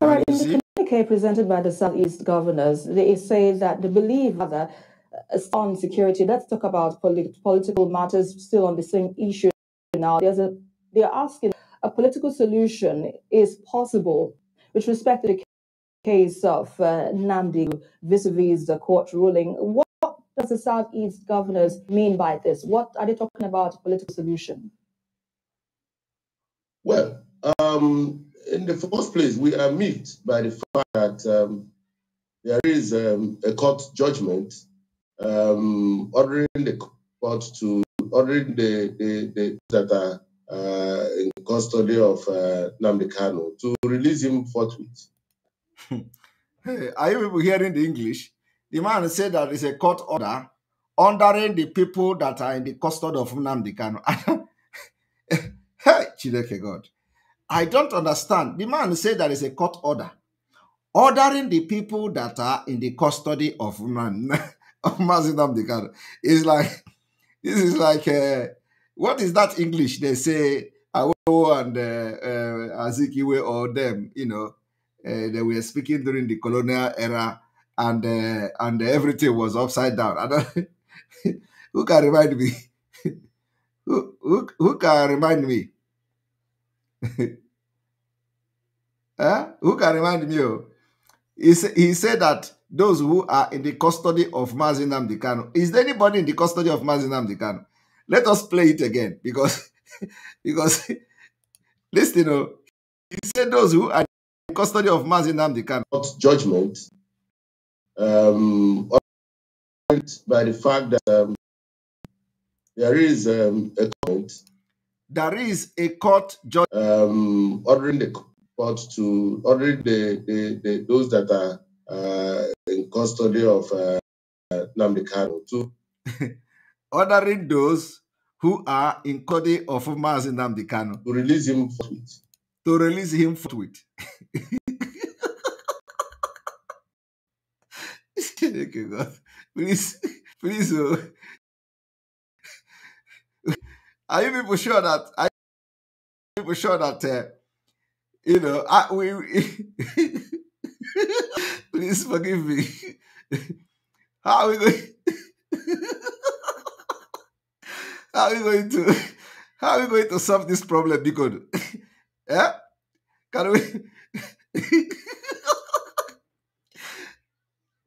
All right, in the communique presented by the Southeast governors, they say that they believe rather uh, on security. Let's talk about polit political matters still on the same issue now. There's a, they're asking a political solution is possible with respect to the case of uh, Namdi vis-a-vis -vis the court ruling. What does the Southeast governors mean by this? What are they talking about political solution? Well, um, in the first place, we are moved by the fact that um, there is um, a court judgment um, ordering the court to ordering the, the, the that are uh, in custody of uh, to release him forthwith. hey, are you people hearing the English? The man said that it's a court order ordering the people that are in the custody of Nnamdi Kanu. hey, Chideke God. I don't understand. The man said that it's a court order ordering the people that are in the custody of man of Nnamdi Kanu. It's like, this is like, uh, what is that English they say? and uh, uh, Azikiwe or them, you know, uh, they were speaking during the colonial era and uh, and everything was upside down. And who can remind me? who, who, who can remind me? huh? Eh? Who can remind me? Oh? He, he said that those who are in the custody of Mazinam Dikano. Is there anybody in the custody of Mazinam Dikano? Let us play it again because because listen, you oh. know, he said those who are in custody of Mazinam Dikano. Judgment um, by the fact that um, there is um, a court. There is a court judge um, ordering the court to ordering the, the, the those that are uh, in custody of uh, Namdekano to ordering those who are in custody of Mazi Namdekano to release him forthwith. To release him forthwith. Chineke God, please, please, are you people sure that, are you people sure that, uh, you know, I, we, we please forgive me. How are we going? how are we going to? How are we going to solve this problem, Biko? yeah? Can we?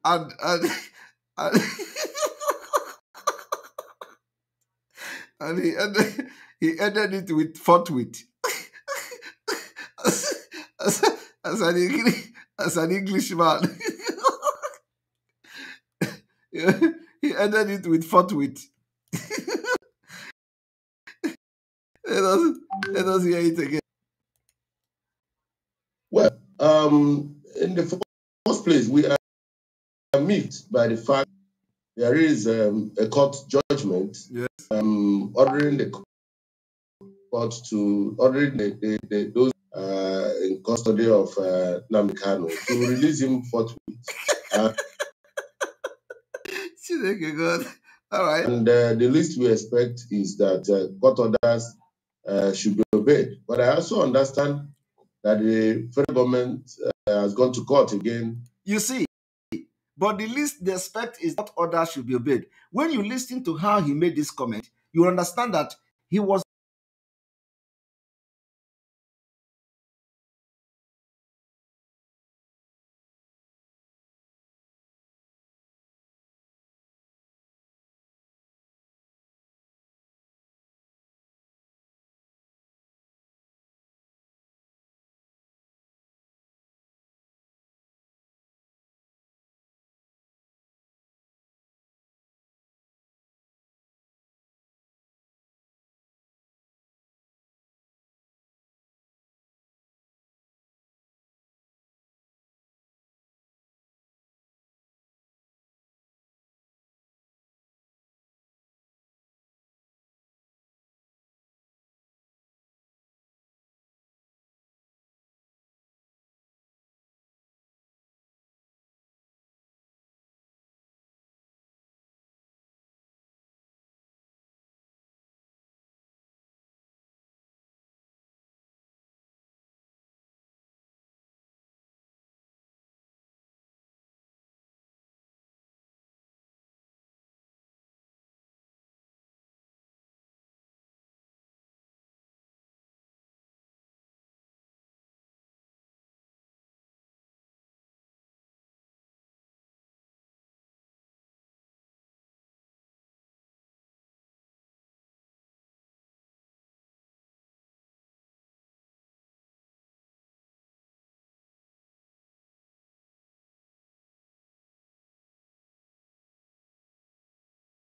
and and and, and he ended, he ended it with forthwith. as, as, as, an English, as an Englishman, he ended it with forthwith. let us let us hear it again. Well, um, in the first place, we aggrieved by the fact there is um, a court judgment yes. um, ordering the court to order the, the, the, those uh, in custody of uh, Namikano to release him forthwith. Uh, you God. All right. And uh, the least we expect is that uh, court orders uh, should be obeyed. But I also understand that the federal government uh, has gone to court again. You see, But the least they expect is that others should be obeyed. When you listen to how he made this comment, you understand that he was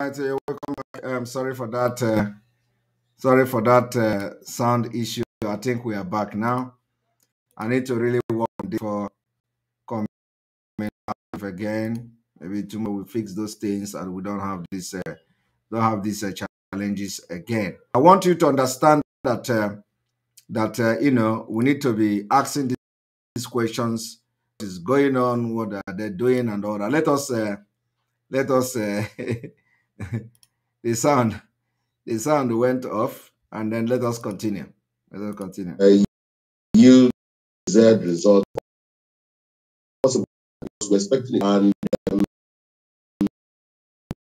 right, welcome back. I'm um, sorry for that. Uh, sorry for that uh, sound issue. I think we are back now. I need to really work on this for coming again. Maybe tomorrow we fix those things and we don't have this uh, don't have these uh, challenges again. I want you to understand that uh, that uh, you know we need to be asking these questions. What is going on? What are they doing? And all that. Let us let us uh, the sound, the sound went off, and then let us continue. Let us continue. Uh, said Z result possible we're expecting, and um,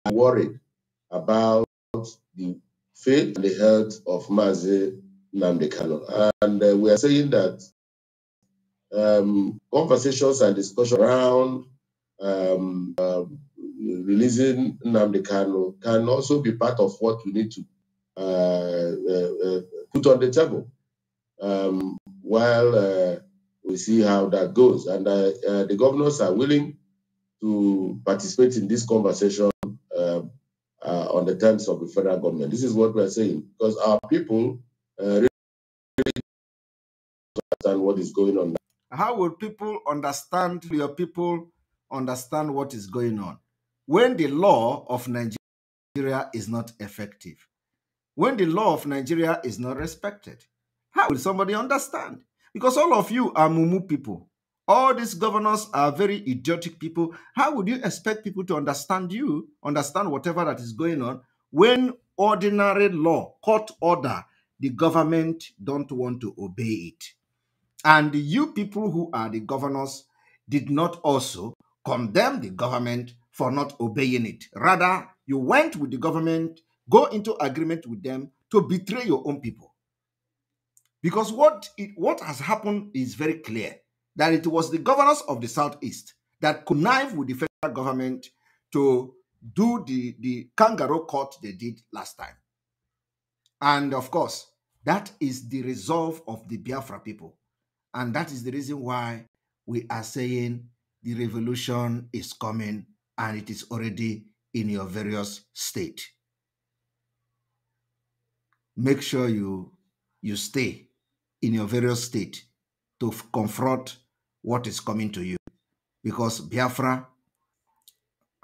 I'm worried about the faith and the health of Mazi Namdekano. And uh, we are saying that um, conversations and discussion around um, um, releasing Namdi Kano can also be part of what we need to uh, uh, uh put on the table um, while uh, we see how that goes. And the governors are willing to participate in this conversation um, on the terms of the federal government. This is what we are saying because our people really understand what is going on. How will people understand, your people understand what is going on? when the law of Nigeria is not effective, when the law of Nigeria is not respected. How will somebody understand? Because all of you are mumu people. All these governors are very idiotic people. How would you expect people to understand you, understand whatever that is going on, when ordinary law, court order, the government don't want to obey it? And you people who are the governors did not also condemn the government for not obeying it. Rather, you went with the government, go into agreement with them to betray your own people. Because what, it, what has happened is very clear that it was the governors of the Southeast that connived with the federal government to do the, the kangaroo court they did last time. And of course, that is the resolve of the Biafra people. And that is the reason why we are saying the revolution is coming and it is already in your various state. Make sure you, you stay in your various state to confront what is coming to you because Biafra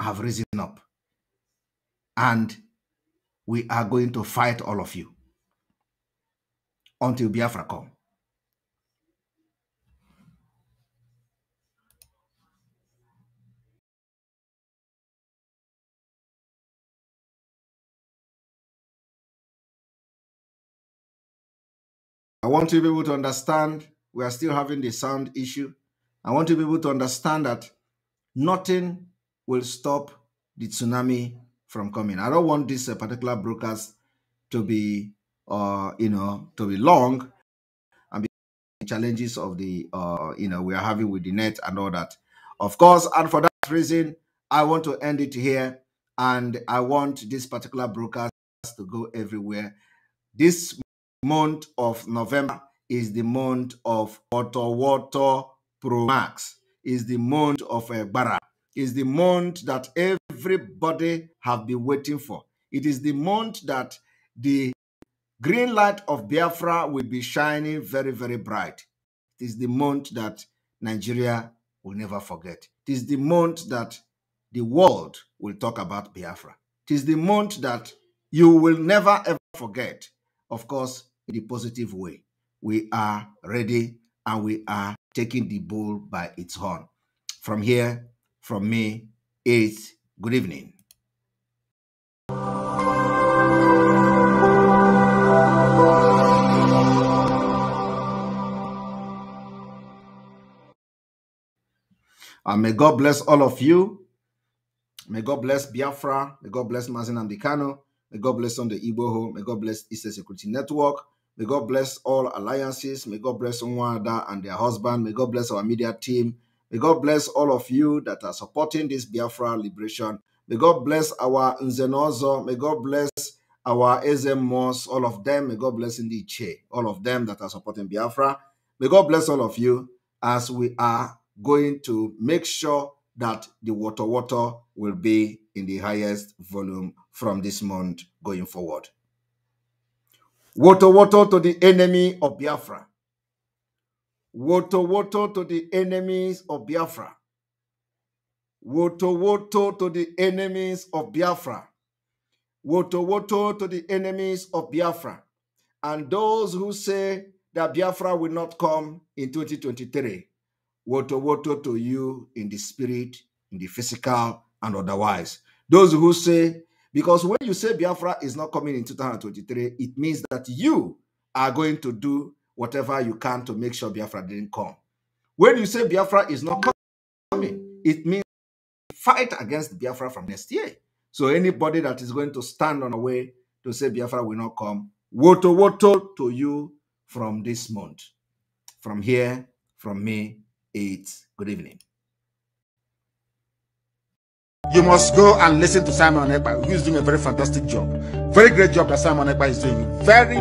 have risen up and we are going to fight all of you until Biafra come. I want you people to understand we are still having the sound issue. I want you people to understand that nothing will stop the tsunami from coming. I don't want this uh, particular broadcast to be, uh, you know, to be long and be challenges of the, uh, you know, we are having with the net and all that. Of course, and for that reason, I want to end it here, and I want this particular broadcast to go everywhere. This month of November is the month of water Pro Max, is the month of bara is the month that everybody have been waiting for. It is the month that the green light of Biafra will be shining very, very bright. It is the month that Nigeria will never forget. It is the month that the world will talk about Biafra. It is the month that you will never ever forget. Of course, in a positive way. We are ready and we are taking the bull by its horn. From here, from me, it's good evening. And may God bless all of you. May God bless Biafra. May God bless Mazen Ambikano. May God bless on the Igboho. May God bless Eastern Security Network. May God bless all alliances. May God bless Nwada and their husband. May God bless our media team. May God bless all of you that are supporting this Biafra liberation. May God bless our Nzenozo. May God bless our Ezemos, all of them. May God bless Ndiche, all of them that are supporting Biafra. May God bless all of you as we are going to make sure that the water water will be in the highest volume from this month going forward. Woto woto to the enemy of Biafra. Woto woto to the enemies of Biafra. Woto woto to the enemies of Biafra. Woto woto to the enemies of Biafra. And those who say that Biafra will not come in 2023. Woto woto to you in the spirit, in the physical, and otherwise. Those who say because when you say Biafra is not coming in 2023, it means that you are going to do whatever you can to make sure Biafra didn't come. When you say Biafra is not coming, it means fight against Biafra from next year. So anybody that is going to stand on a way to say Biafra will not come, woto woto to you from this month. From here, from me, it's good evening. You must go and listen to Simon Ekpa, who is doing a very fantastic job. Very great job that Simon Ekpa is doing. Very